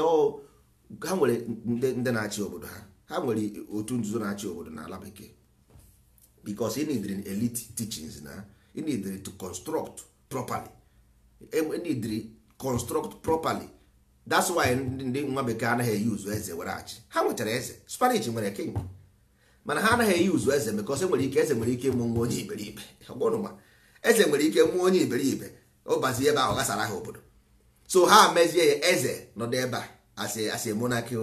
ha nwere ndị na-achị obodo ha ha nwere otu nzuzo na-achị obodo n'ala bekee because ị neediri elite teachings na ị need to construct properly to e, e construct properly that's why ndị nwa bekee anaghị eyuzu eze were achị ha nwetara eze Spanish nwere king mana ha anaghị eyi uzu eze because enwere ike eze nwere ike ịmụ nwa onye iberibe eze nwere ike mụọ onye iberibe ọbazie ebe ahụ ghasara ha obodo so ha mezie ya eze nọdụ ebe a as a monarchy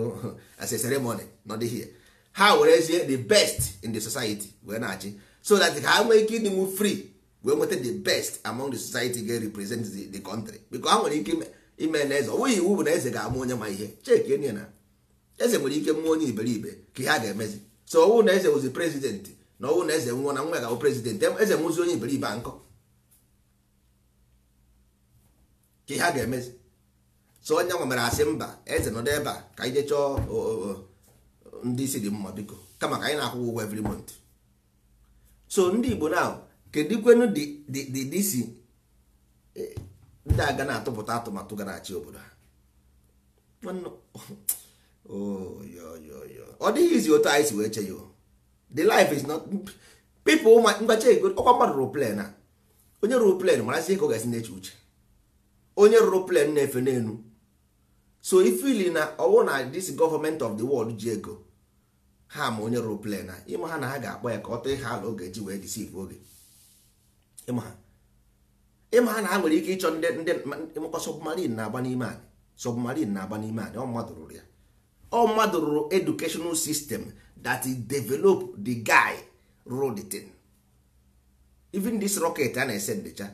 as a ceremony nọdụ here ha werezie the best in the society wee na-achị so that ha nwee ike ịdịnwu free wee nweta the best among the society ga-represent the, country because ha nwere ike ime na eze ọnweghị iwu bụ na eze ga-amụ onye ma ihe cheke na eze nwere ike mụọ onye iberibe ka ha ga-emezi so ọnwụ na eze wụzi prezident na ọnwụ na eze nwụọ na nwa ga-abụ prezident eze nwụzi onye iberibe nkọ ka ihe a ga-emezi so onye nwa mere asị mba eze nọdụ ebe a ka anyị jechọọ ndị isi dị mma biko kama ka anyị na akwụgwọ ụgwọ every month so ndị igbo na kedikwenu dị isi eh, ndị aga na-atụpụta atụmatụ ga na-achị obodo ha ọ dịghịzi otu anyị si wee che ya the life is not people mgbacha ego ọkwa mmadụ rụrụ plen a onye rụrụ plen marazi ka ọ ga-esi na-eche uche onye rụrụ plen na-efe n'elu so ifili na ọwụ na this government of the world ji ego ha ma onye rụrụ plen a ịma ha na ha ga-akpọ ya ka ọ tee ha ala oge ji wee disiv oge ịma ha na ha nwere ike ịchọ ndị ndị mkpa submarin na-agba n'ime anyị submarin na-agba n'ime anyị ọ mmadụ rụrụ ya ọ mmadụ rụrụ educational system that develop the guy rụrụ thing even this rocket a na-esendecha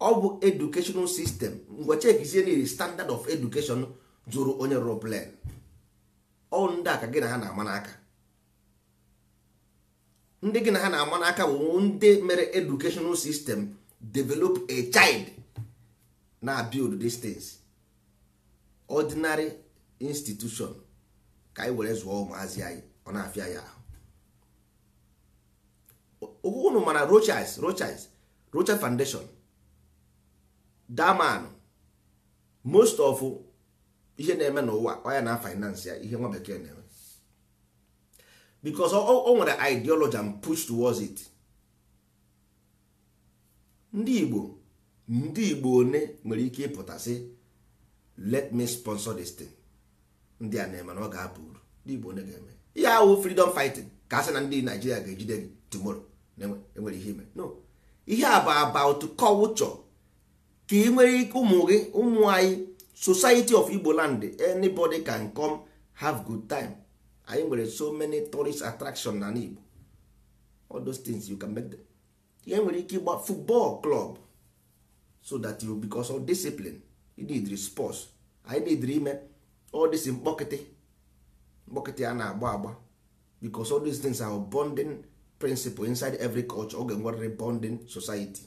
ọ bụ educational system ngwa chekizie niile standard of education zụrụ onye rụrụ ọ ndị aka gị na ha na-ama n'aka ndị gị na ha na-ama n'aka bụ ndị mere educational system develop a child na build these things ordinary institution ka anyị were zụọ ụmụazị anyị ọ na-afịa ya ahụ unu mana Rochas Rochas Rochas Foundation daman most of ihe na-eme n'ụwa ọ na finance ya ihe nwa bekee na-eme because o nwere ideology and push towards it ndị Igbo ndị Igbo one nwere ike ịpụta sị let me sponsor this thing ndị a na-eme na ọ ga-apụ uru ndị Igbo onye ga-eme ihe ahụ freedom fighting ka a na ndị Naijiria ga-ejide gị tomorrow enwere ihe ime no ihe a bụ about culture ka ị nwere ike ụmụ gị ụmụ anyị society of Igbo land anybody can come have good time anyị nwere so many tourist attraction na Igbo all those things you can make them ihe e nwere ike ịgba football club so that you because of discipline you need sports anyị need ime all this mkpọkịtị mkpọkịtị a na-agba agba because all these things are bonding principle inside every culture oge nwere bonding society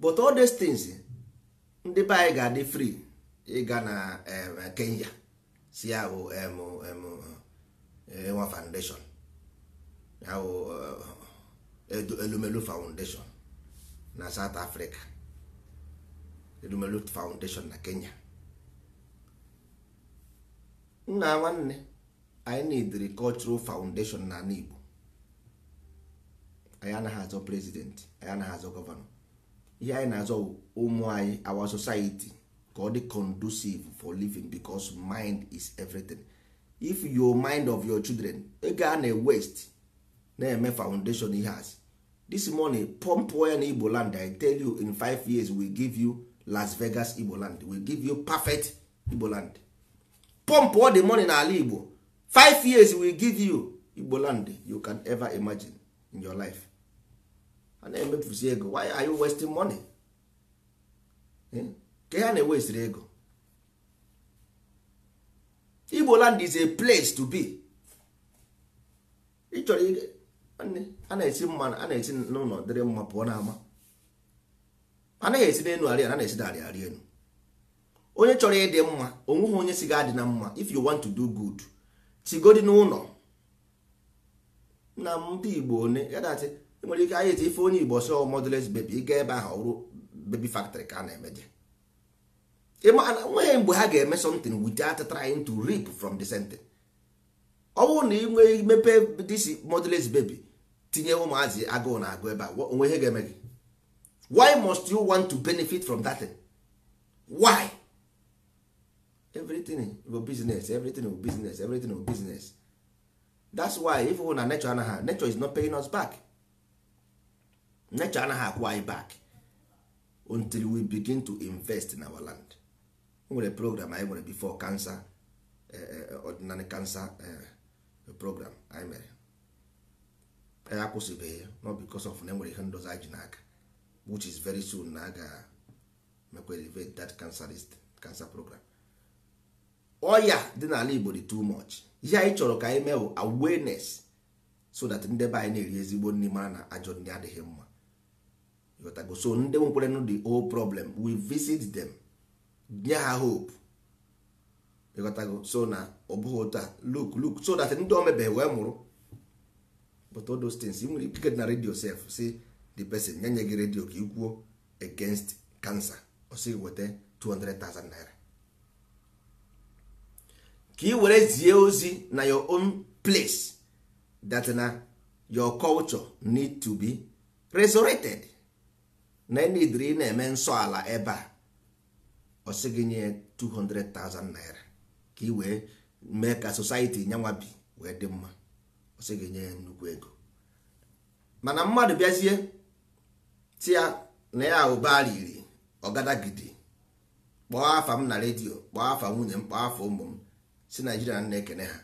but all these things ndị be anyị ga-adị free ịga na Kenya si ahụ eh, nwa foundation ahụ eh, elumelu foundation na South Africa Lumelu Foundation na Kenya nna nwanne anyị na-ediri cultural foundation na ala Igbo anyị anaghị azọ president anyị anaghị azọ gọvanọ ihe anyị na-azọ ụmụ anyị our society ka ọ dị conducive for living because mind is everything if your mind of your children ego a na-waste na-eme foundation ihe has. this money pump ya na Igbo land I tell you in five years we give you las vegas igbo land will give you perfect igbo land pump all the money n'ala igbo five years will give you igbo land you can ever imagine in your life a na-emefusi ego why are you wasting money hmm? ke ha na-ewesiri ego igbo land is a place to be ịchọrọ a na-esi mma a na-esi n'ụlọ dịrị mma pụọ n'ama anaghị esi n'elu arị ana na-esi n'arị arị elu onye chọrọ ịdị mma onweghị onye si ga-adị na mma if you want to do good sigodi n'ụlọ na ndị Igbo one ya nwere ike anyị eti ife onye Igbo sọ modeles bebi ịga ebe ahụ ọrụ bebi factory ka a na-emeje nweghị mgbe ha ga-eme something without trying to rip from the center. ọ bụrụ na ị nwee mepe disi modeles bebi tinye ụmụazị agụụ na agụ ebe a onwe ihe ga-eme gị why must you want to benefit from that thing? why everything for business everything for business everything for business that's why if hụ na nature anaghị nature is not paying us back nature anaghị akwụ anyị back until we begin to invest in our land nwere program anyị nwere before cancer ordinary cancer program anyị mere anyị akwụsịbeghị not because of na enwere ihe ndozi anyị ji n'aka which is very soon na a mekwa elevate that cancerist cancer program ọya oh, dị n'ala Igbo dị too much ihe anyị chọrọ ka anyị mee awareness so that ndị be anyị na-eri ezigbo nri mara na ajọ ndị adịghị mma ịghọtago so ndị nwekwarenụ the old problem we visit them nye ha hope ịghọtago so na ọ bụghị otu a look look so that ndị omebe wee mụrụ but all nwere ike na redio sef si the person nye nye gị redio ka ikwuo against cancer ọ weta 200,000 naira ka ị were zie ozi na your own place that na your culture need to be resurrected na enidiri ị na-eme nsọ ala ebe a ọ gị nye 200,000 naira ka ị wee mee ka society nyanwa bi wee dị mma ọ gị nye nnukwu ego mana mmadụ bịazie tia na ya ụba riri ọgadagidi kpọọ afa m na redio kpọọ afa nwunye m kpọọ afa ụmụ m si naijiria na-ekene ha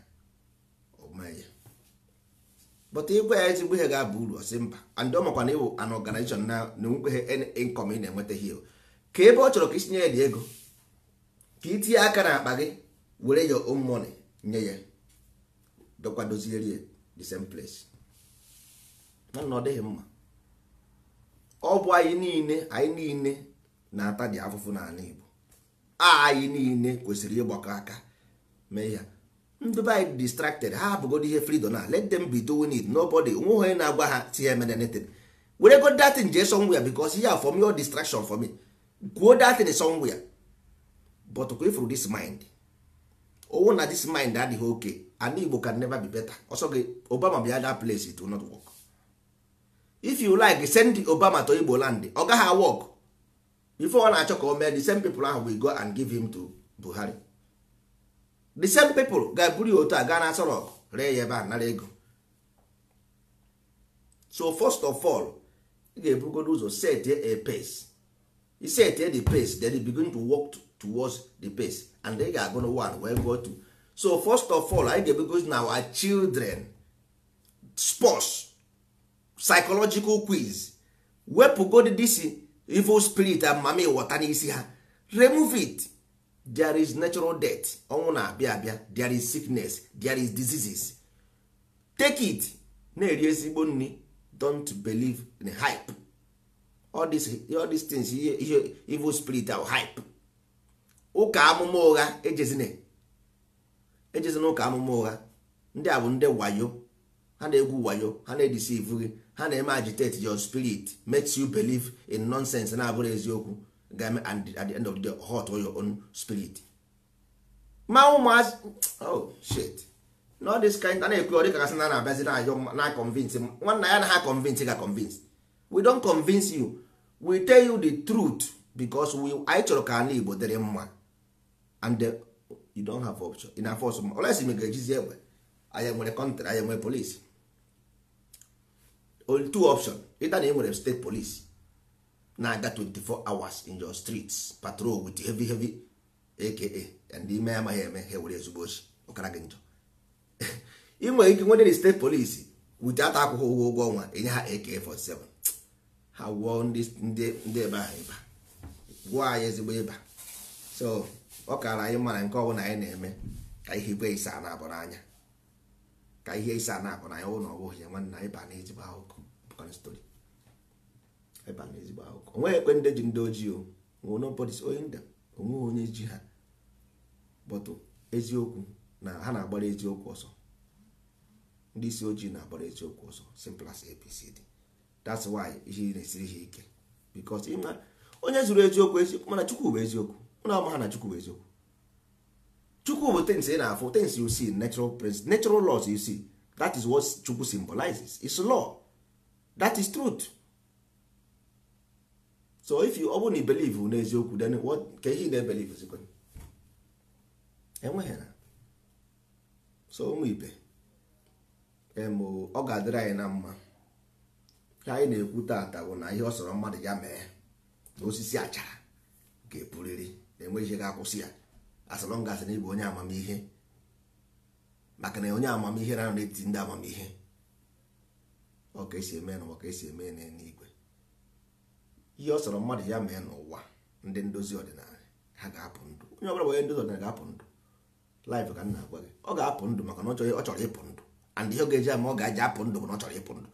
bụta igwe ya ezigbo ihe ga-aba uru ọsị mba andị ọ makwa na ịwụ an na nwekwe inkọm ị na-enwetaghị o ka ebe ọ chọrọ ka isinye ya dị ego ka itinye aka na akpa gị were ya own nye ya dokwa ya the same place na ọ dịghị mma ọ bụ anyị niile anyị niile na-ata dị afụfụ n'ala Igbo anyị niile kwesịrị ịgbakọ aka mee ya ndị be anyị distracted ha abụgodo ihe fridom na let them be doing it nobody nweghị onye na-agwa ha si ha emedenetin were go datin jee somewhere because ya for me or distraction for me kwuo datin ya but kwa ifuru this mind owu na this mind adịghị oke ala Igbo can never be better ọsọ gị Obama bịa that place it will not work if you like send obama to igbo land ọ gaghị awọk before ọ na-achọ ka o mee the same people ahụ will go and give him to buhari the same people ga-eburu ya otu a gaa na asọ ree ya ebe a nara ego so first of all ị ga-ebugodo ụzọ set a pace you set the pace then e begin to work towards the pace and then ị ga-agụ na one wee go to so first of all anyị ga-ebugodo na our children sports psychological quiz wepụgod this evil spirit amami ịghọta n'isi ha remove it there is natural death ọnwụ na-abịa abịa there is sickness there is diseases take it na-eri ezigbo nri don't believe in hype all these, all these things ihe evil spirit are hype ụka amụma ụgha ejezina ejezina ụka amụma ụgha ndị a bụ ndị wayo ha na-egwu wayo ha na-edisi ivu gị ha na-eme agitate your spirit makes you believe in nonsense na-abụrụ eziokwu ga-eme and at the end of the day hot your own spirit ma ụmụazị oh shit na this kind a na-ekwe ọdị kasị na na-abịazi na ayọ na convince nwanna ya na ha convince ga convince we don convince you we tell you the truth because we anyị chọrọ ka ala Igbo dịrị mma and you don't have option in force ọsọ olesi m ga-ejizi egbe anyị nwere kọntrị anyị nwere polisi on two option ịta na ị nwere state police na-aga 24 hours in your streets patrol with heavy heavy aka ndị ime amaghị eme ha were ezigbo ochi ọkara gị njọ [laughs] ị nwere ike nwere state police witata akwụkwọ ụgwọ ụgwọ ọnwa enye ha ak47 ha gwụọ ndị ebe ahụ ịba gwụọ anyị ezigbo ịba so ọ kara anyị mara nke ọbụla anyị na-eme ka ihe igwe isa na-abụ n'anya ka ihe isa na-abụ n'anya ụlọ ọbụghị ya nwanne anyị ba na ezigbo ahụkọ maka na ebe a na ezigbo akụkọ onweghị ekwe ndị ji ndị ojii o nwere onye nda onweghị onye ji ha bọtụ eziokwu na ha na-agbara eziokwu ọsọ ndị isi ojii na-agbara eziokwu ọsọ simple as ABCD that's why ihe na-esiri ha ike because ịma onye zuru eziokwu eziokwu mana chukwu bụ eziokwu ụlọ ama ha na chukwu bụ eziokwu chukwu bụ things ị na-afụ things you see natural laws you see that is what chukwu symbolizes it's law that is truth so if you ọ believe na n'eziokwu then what ka ihe na-ebelive zikwa enweghị na so ụmụ ibe ọ ga-adịrị anyị na mma ka anyị na-ekwu taata bụ na ihe ọ sọrọ mmadụ ya mee na osisi achara ga epuriri na-enweghị ihe ga-akwụsị ya asọrọ ngasị na ịbụ onye amamihe maka na onye amamihe na-anọ n'etiti ndị amamihe ọ esi eme n'ụwa ka esi eme n'eluigwe ihe ọ sọrọ mmadụ ya mee n'ụwa ndị ndozi ọdịnala ha ga-apụ ndụ onye ọbụla onye ndozi ọdịnala ga-apụ ndụ laịf ka nna agwa gị ọ ga-apụ ndụ maka na ọ chọrọ ịpụ ndụ and ihe ọ ga-eji ama ọ ga-eji apụ ndụ bụ na ọ chọrọ ịpụ ndụ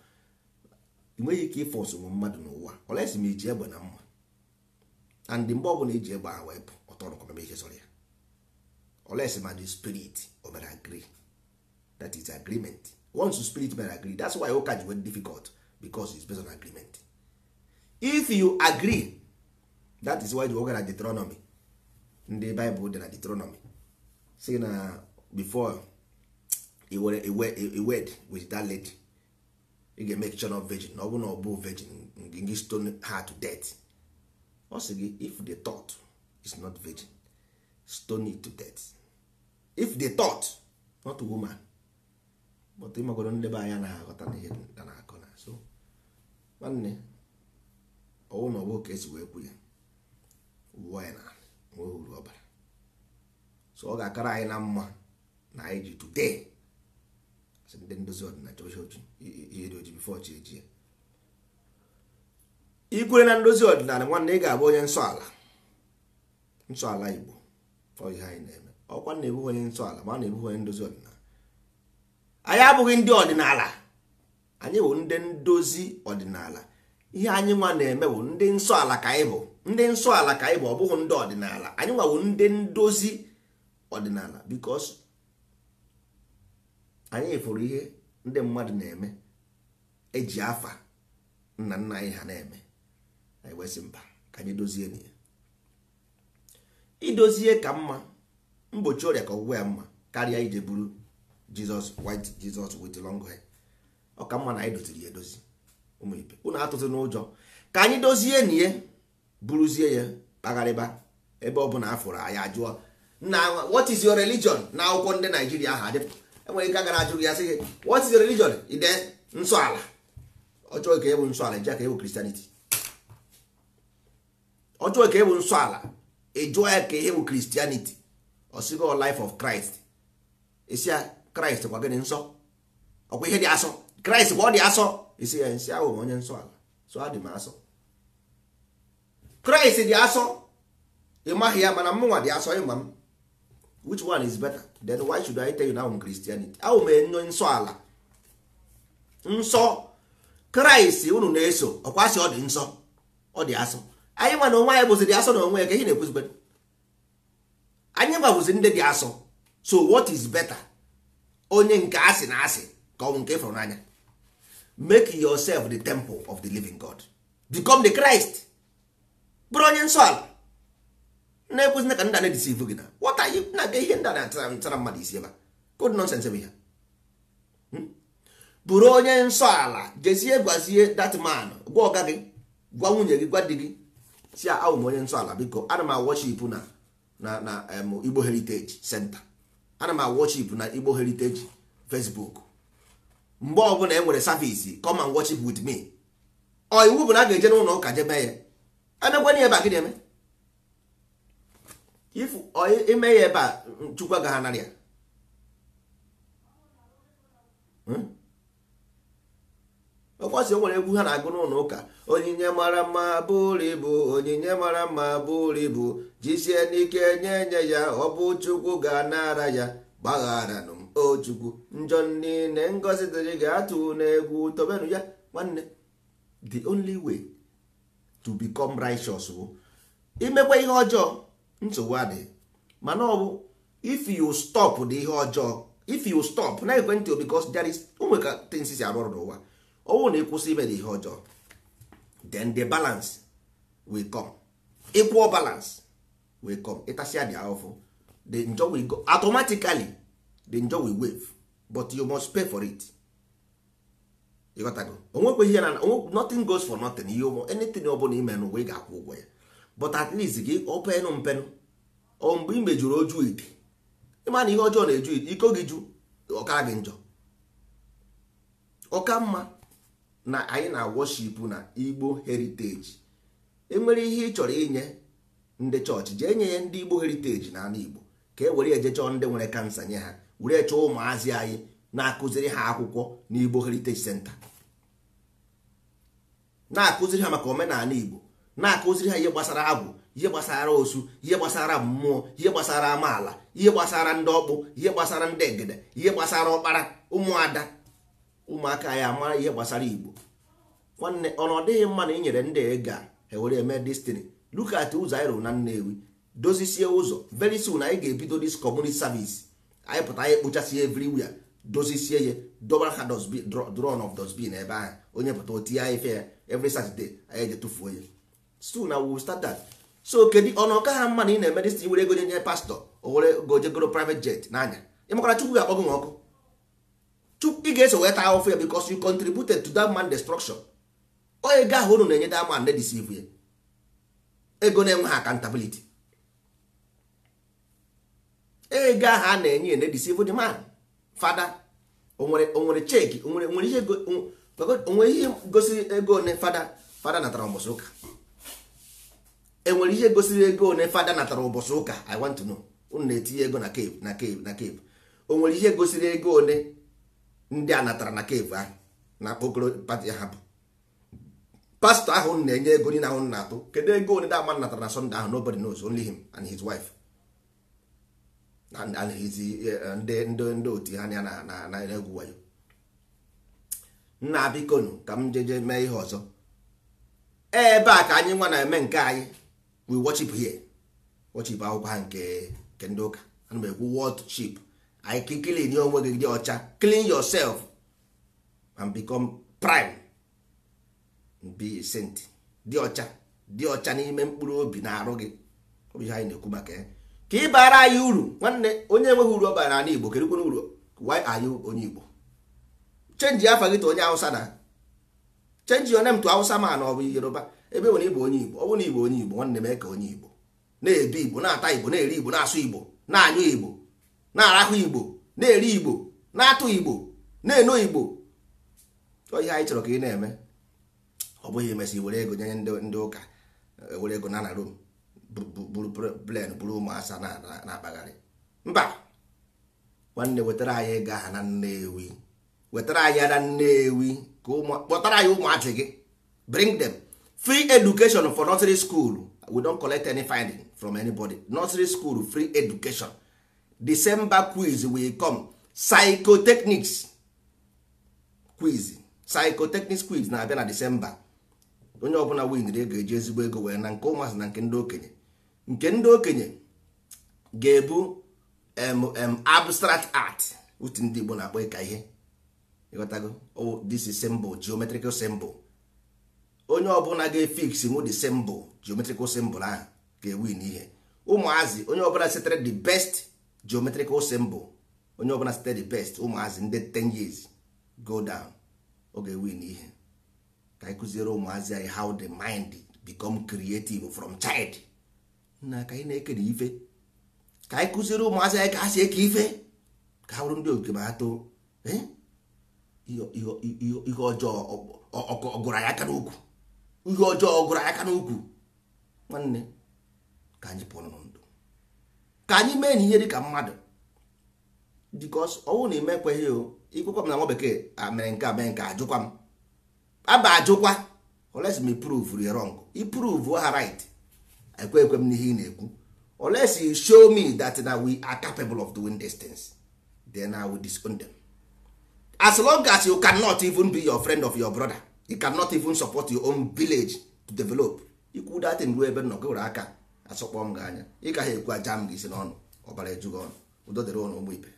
ị nweghị ike ịfụ ọsụmụ mmadụ n'ụwa ọlesi m iji egbe na mma and mgbe ọ bụla iji egbe ha wee pụ ọtọ rụkọmeme ihe sọrọ ya esi ma spirit o mere that is agreement once the spirit man agree that's why ụka ji wee difficult because it's based on agreement if you agree that is why the ụka na Deuteronomy ndị Bible dị na Deuteronomy say na before were a wed with that lady you ga make sure of virgin na ọ bụ na ọ virgin gị stone her to death ọ sị gị if the thought is not virgin stone it to death if the thought not woman but ịmagoro ndebe anya na-aghọta na ihe a na-akọ na so nwanne ọwụ na ọgbụ ka esi wee kwu ya uwe anyị na nweghị uru ọbara so ọ ga-akara anyị na mma na anyị ji today asị ndị ndozi ọdịnala ochi ihe dị oji bifo chi eji ikwere na ndozi ọdịnala nwanne ị ga-abụ onye nsọ ala nsọ ala igbo ọ ihe anyị na-eme ọkwa na-ebughị onye nsọ ala ma a na-ebughị onye ndozi ọdịnala anyị abụghị ndị ọdịnala anyị bụ ndị ndozi ọdịnala ihe anyị nwa na-eme bụ ndị nsọ ka anyị bụ ndị nsọ ala ka anyị bụ ọ bụghị ndị ọdịnala anyị nwa bụ ndị ndozi ọdịnala bikos anyị fụrụ ihe ndị mmadụ na-eme eji afa nna nna anyị ha na-eme anyị wesị mba ka anyị dozie na idozie ka mma mgbochi ọrịa ka ọgwụgwọ ya mma karịa ije buru jizọs white jizọs with long hair ọ mma na anyị doziri ya edozi ụmụ ibe unu atụtụ n'ụjọ ka anyị dozie na ihe buruzie ya kpagharịba ebe ọ bụla afụrụ anyị ajụọ na what is your religion na akwụkwọ ndị naijiria ahụ adịpụ enwere ike agara ajụ ya sị gị what is your religion ide nsọ ala ọchọghị ka ebu nsọ ala eji aka ebu kristianity ọchọghị ka ebu e nsọ ala ejụọ ya ka ihe bụ kristianity ọsịgo oh, life of christ esi ya kraịst gwa gịnị nsọ ọkwa ihe dị asọ kraịst gwa ọ dị asọ isi ya nsị ahụ onye nsọ ala so adị m asọ kraịst dị asọ ị maghị ya mana mụnwa dị asọ ịma m which one is better then why should I tell you now I'm Christianity ahụ m enyo nsọ ala nsọ kraịst unu na-eso ọkwa sị ọ dị nsọ ọ dị asọ anyị nwa na onwe anyị bụzi dị asọ na onwe ya ka ihe na-ekwuzigbe anyị nwabụzi ndị dị asọ so what is better onye nke asị na asị ka ọnwụ nke e fụrụ n'anya make yourself the temple of the living god become the christ bụrụ onye nsọ ala na-ekwuzina ka nda na-edisivu gị na wọta na-aga ihe ndị na-atara mmadụ isi ebe kod nonsens bụ ihe hmm? bụrụ onye nsọ ala jezie gwazie that man gwa ọga gị gwa nwunye gị gwa di gị si awụ m onye nsọ ala biko ana m awọchipụ na na na igbo heritage center ana m awọchip na igbo heritage facebook mgbe ọbụla e nwere savisi come and with me ọ iwu bụ na a ga-eje n'ụlọ ụka jebe ya emekwana ebe a gịnị eme ifu ime ya ebe a chukwu agaghị ya hmm? ọkwasị nwere egwu ha na-agụ n'ụlọ ụka onyinye mara mma bụrụ ibu onyinye mara mma bụrụ ibu jizie n'ike nye nye ya ọ bụ chukwu ga-anara ya gbaghara m o chukwu njọ niile ngozi dịrị ga-atụ n'egwu tobenu ya nwanne the only way to become righteous bụ imekwa ihe ọjọọ nsogbu adịghị mana ọ bụ if you stop the ihe ọjọọ if you stop na ekwentị because there is o nweka arụ ọrụ n'ụwa Ọnwụ na ịkwụsị ime ihe ọjọọ then the balance will come Ịkwụọ balance will come Ịtasia dị ahụfụ the njọ will go automatically the njọ will wave but you must pay for it ịghọtago onwekwe ihe na nothing goes for nothing ihe ụmụ anything ọ bụla ime n'ụwa ga-akwụ ụgwọ ya but at least gị openụ mpenụ O mgbe ị mejuru oju ite ịma na ihe ọjọọ na-eju iko gị ju ọkara gị njọ ọka mma na anyị na-worship na igbo heriteji enwere ihe ị chọrọ inye ndị chọọchị jee nye ya ndị igbo heriteji na anụ igbo ka e were eje chọọ ndị nwere kansa nye ha were chọọ ụmụazị anyị na-akụziri ha akwụkwọ na igbo heriteji center na-akụziri ha maka omenala igbo na-akụziri ha ihe gbasara agwụ ihe gbasara osu ihe gbasara mmụọ ihe gbasara amaala ihe gbasara ndị ọkpụ ihe gbasara ndị egede ihe gbasara ọkpara ụmụada ụmụaka anyị mara ihe gbasara igbo nwanne ọnụ ọ dịghị mma na inyere ndị ga ewere eme destiny lukat ụzọ anyị rụrụ na nnewi dozisie ụzọ very anyị ga-ebido dis community service anyị pụta anyị kpochasie everywhere dozisie ya doba ha dron of dosbin ebe ahụ onye pụta otinye anyị fe ya every saturday anyị eje tụfuo ya so na we start so kedu ọnụ ọka ha mma na ị na-eme destiny were ego nye pastọ o were gojegoro private jet n'anya ịmakwara chukwu ga-akpọ gị nwa ọkụ ị ga-eso wee taa ahụfụ ya bikos you contributed to that man destruction onye ego ahụ unu na-enye that man na-edisivu ya ego na-enweghị accountability ego ahụ a na-enye ya na-edisivu the man fada onwere onwere cheki onwere ihe gosiri ego one fada fada natara ụbọchị ụka enwere ihe gosiri ego one fada natara ụbọchị ụka i want to know unu na-etinye ego na cave na cave na cave onwere ihe gosiri ego one ndị a natara na kevu ahụ na okoro pati hapụ pastọ ahụ na-enye ego niile ahụ na-atụ kedu ego onye dama natara na sọnde ahụ nobody knows only him and his wife and his eh, ndị ndị otu ha ya na egwu wayo nna bikonu ka m jeje mee ihe ọzọ ebe a ka anyị nwa na-eme nke anyị we worship here worship akwụkwọ ha nke ndị ụka ana m ekwu world ship anyị kilin onwe gị dị ọcha clean yourself and become prime be a saint dị ọcha dị ọcha n'ime mkpụrụ obi na arụ gị obi ha ihe anyị na-ekwu maka ya ka ị baara anyị uru nwanne onye enweghị uru ọ bara n'ala Igbo kedukwana uru why are you onye Igbo chenji afa gị tụ onye awụsa na chenji onem tụ awụsa ma na ọ Yoruba ebe nwere igbo onye Igbo ọ bụrụ na Igbo onye Igbo nwanne mee ka onye Igbo na-ebi Igbo na-ata Igbo na-eri Igbo na-asụ Igbo na-anyụ Igbo na-arahụ igbo na-eri igbo na-atụ igbo na-eno igbo ihe anyị chọrọ ka ị na-eme ọ bụghị emesị were ego nye ndị ụka e were ego na na rom buru plen buru ụmụ asa na-akpagharị mba nwanne wetara anyị ego aha na nnewi wetara anyị na nnewi ka kpọtara anyị ụmụazị gị bring them free education for nursery school we don't collect any finding from anybody nursery school free education december quiz will come psychotechnics quiz psychotechnics quiz na-abịa na december onye ọbụla winri ego eji ezigbo ego wee na nke ụmụazị na nke ndị okenye nke ndị okenye ga-ebu abstract art utu ndị igbo na-akpọ ịka ihe ịghọtago oh this is symbol geometrical symbol onye ọbụla ga-efix nwu the symbol geometrical symbol ahụ ga-ewin ihe ụmụazị onye ọbụla setere the best geometrical symbol onye ọbụla site the best ụmụazị ndị 10 years go down oge win ihe ka anyị kụziere ụmụazị anyị how the mind become creative from child na ka anyị na-ekere ife ka anyị kụziere ụmụazị anyị ka ha si eke ife ka ha bụrụ ndị oke ma atụ too eh? ihe ọjọọ ọgụrụ anyị aka n'ukwu ihe ọjọọ ọgụrụ anyị aka n'ukwu nwanne ka anyị pụrụ ka anyị mee na ihe dị ka mmadụ because ọnwụ na ime ekweghị o ikwekwa m na nwa bekee ah, mere nke a mee nke ajụkwa m aba ajụkwa oles m prove you wrong iprove ha right ekwe ekwe m n'ihe ị na-ekwu oles you show me that na we are capable of doing these things then I will disown them as long as you cannot even be your friend of your brother you cannot even support your own village to develop ikwu datin ruo ebe nnọgoro aka asọkpọ m gị anya ị gaghị ekwu aja m gị isi n'ọnụ ọbara ejughị ọnụ udo dịrị ụnụ ụmụ ibe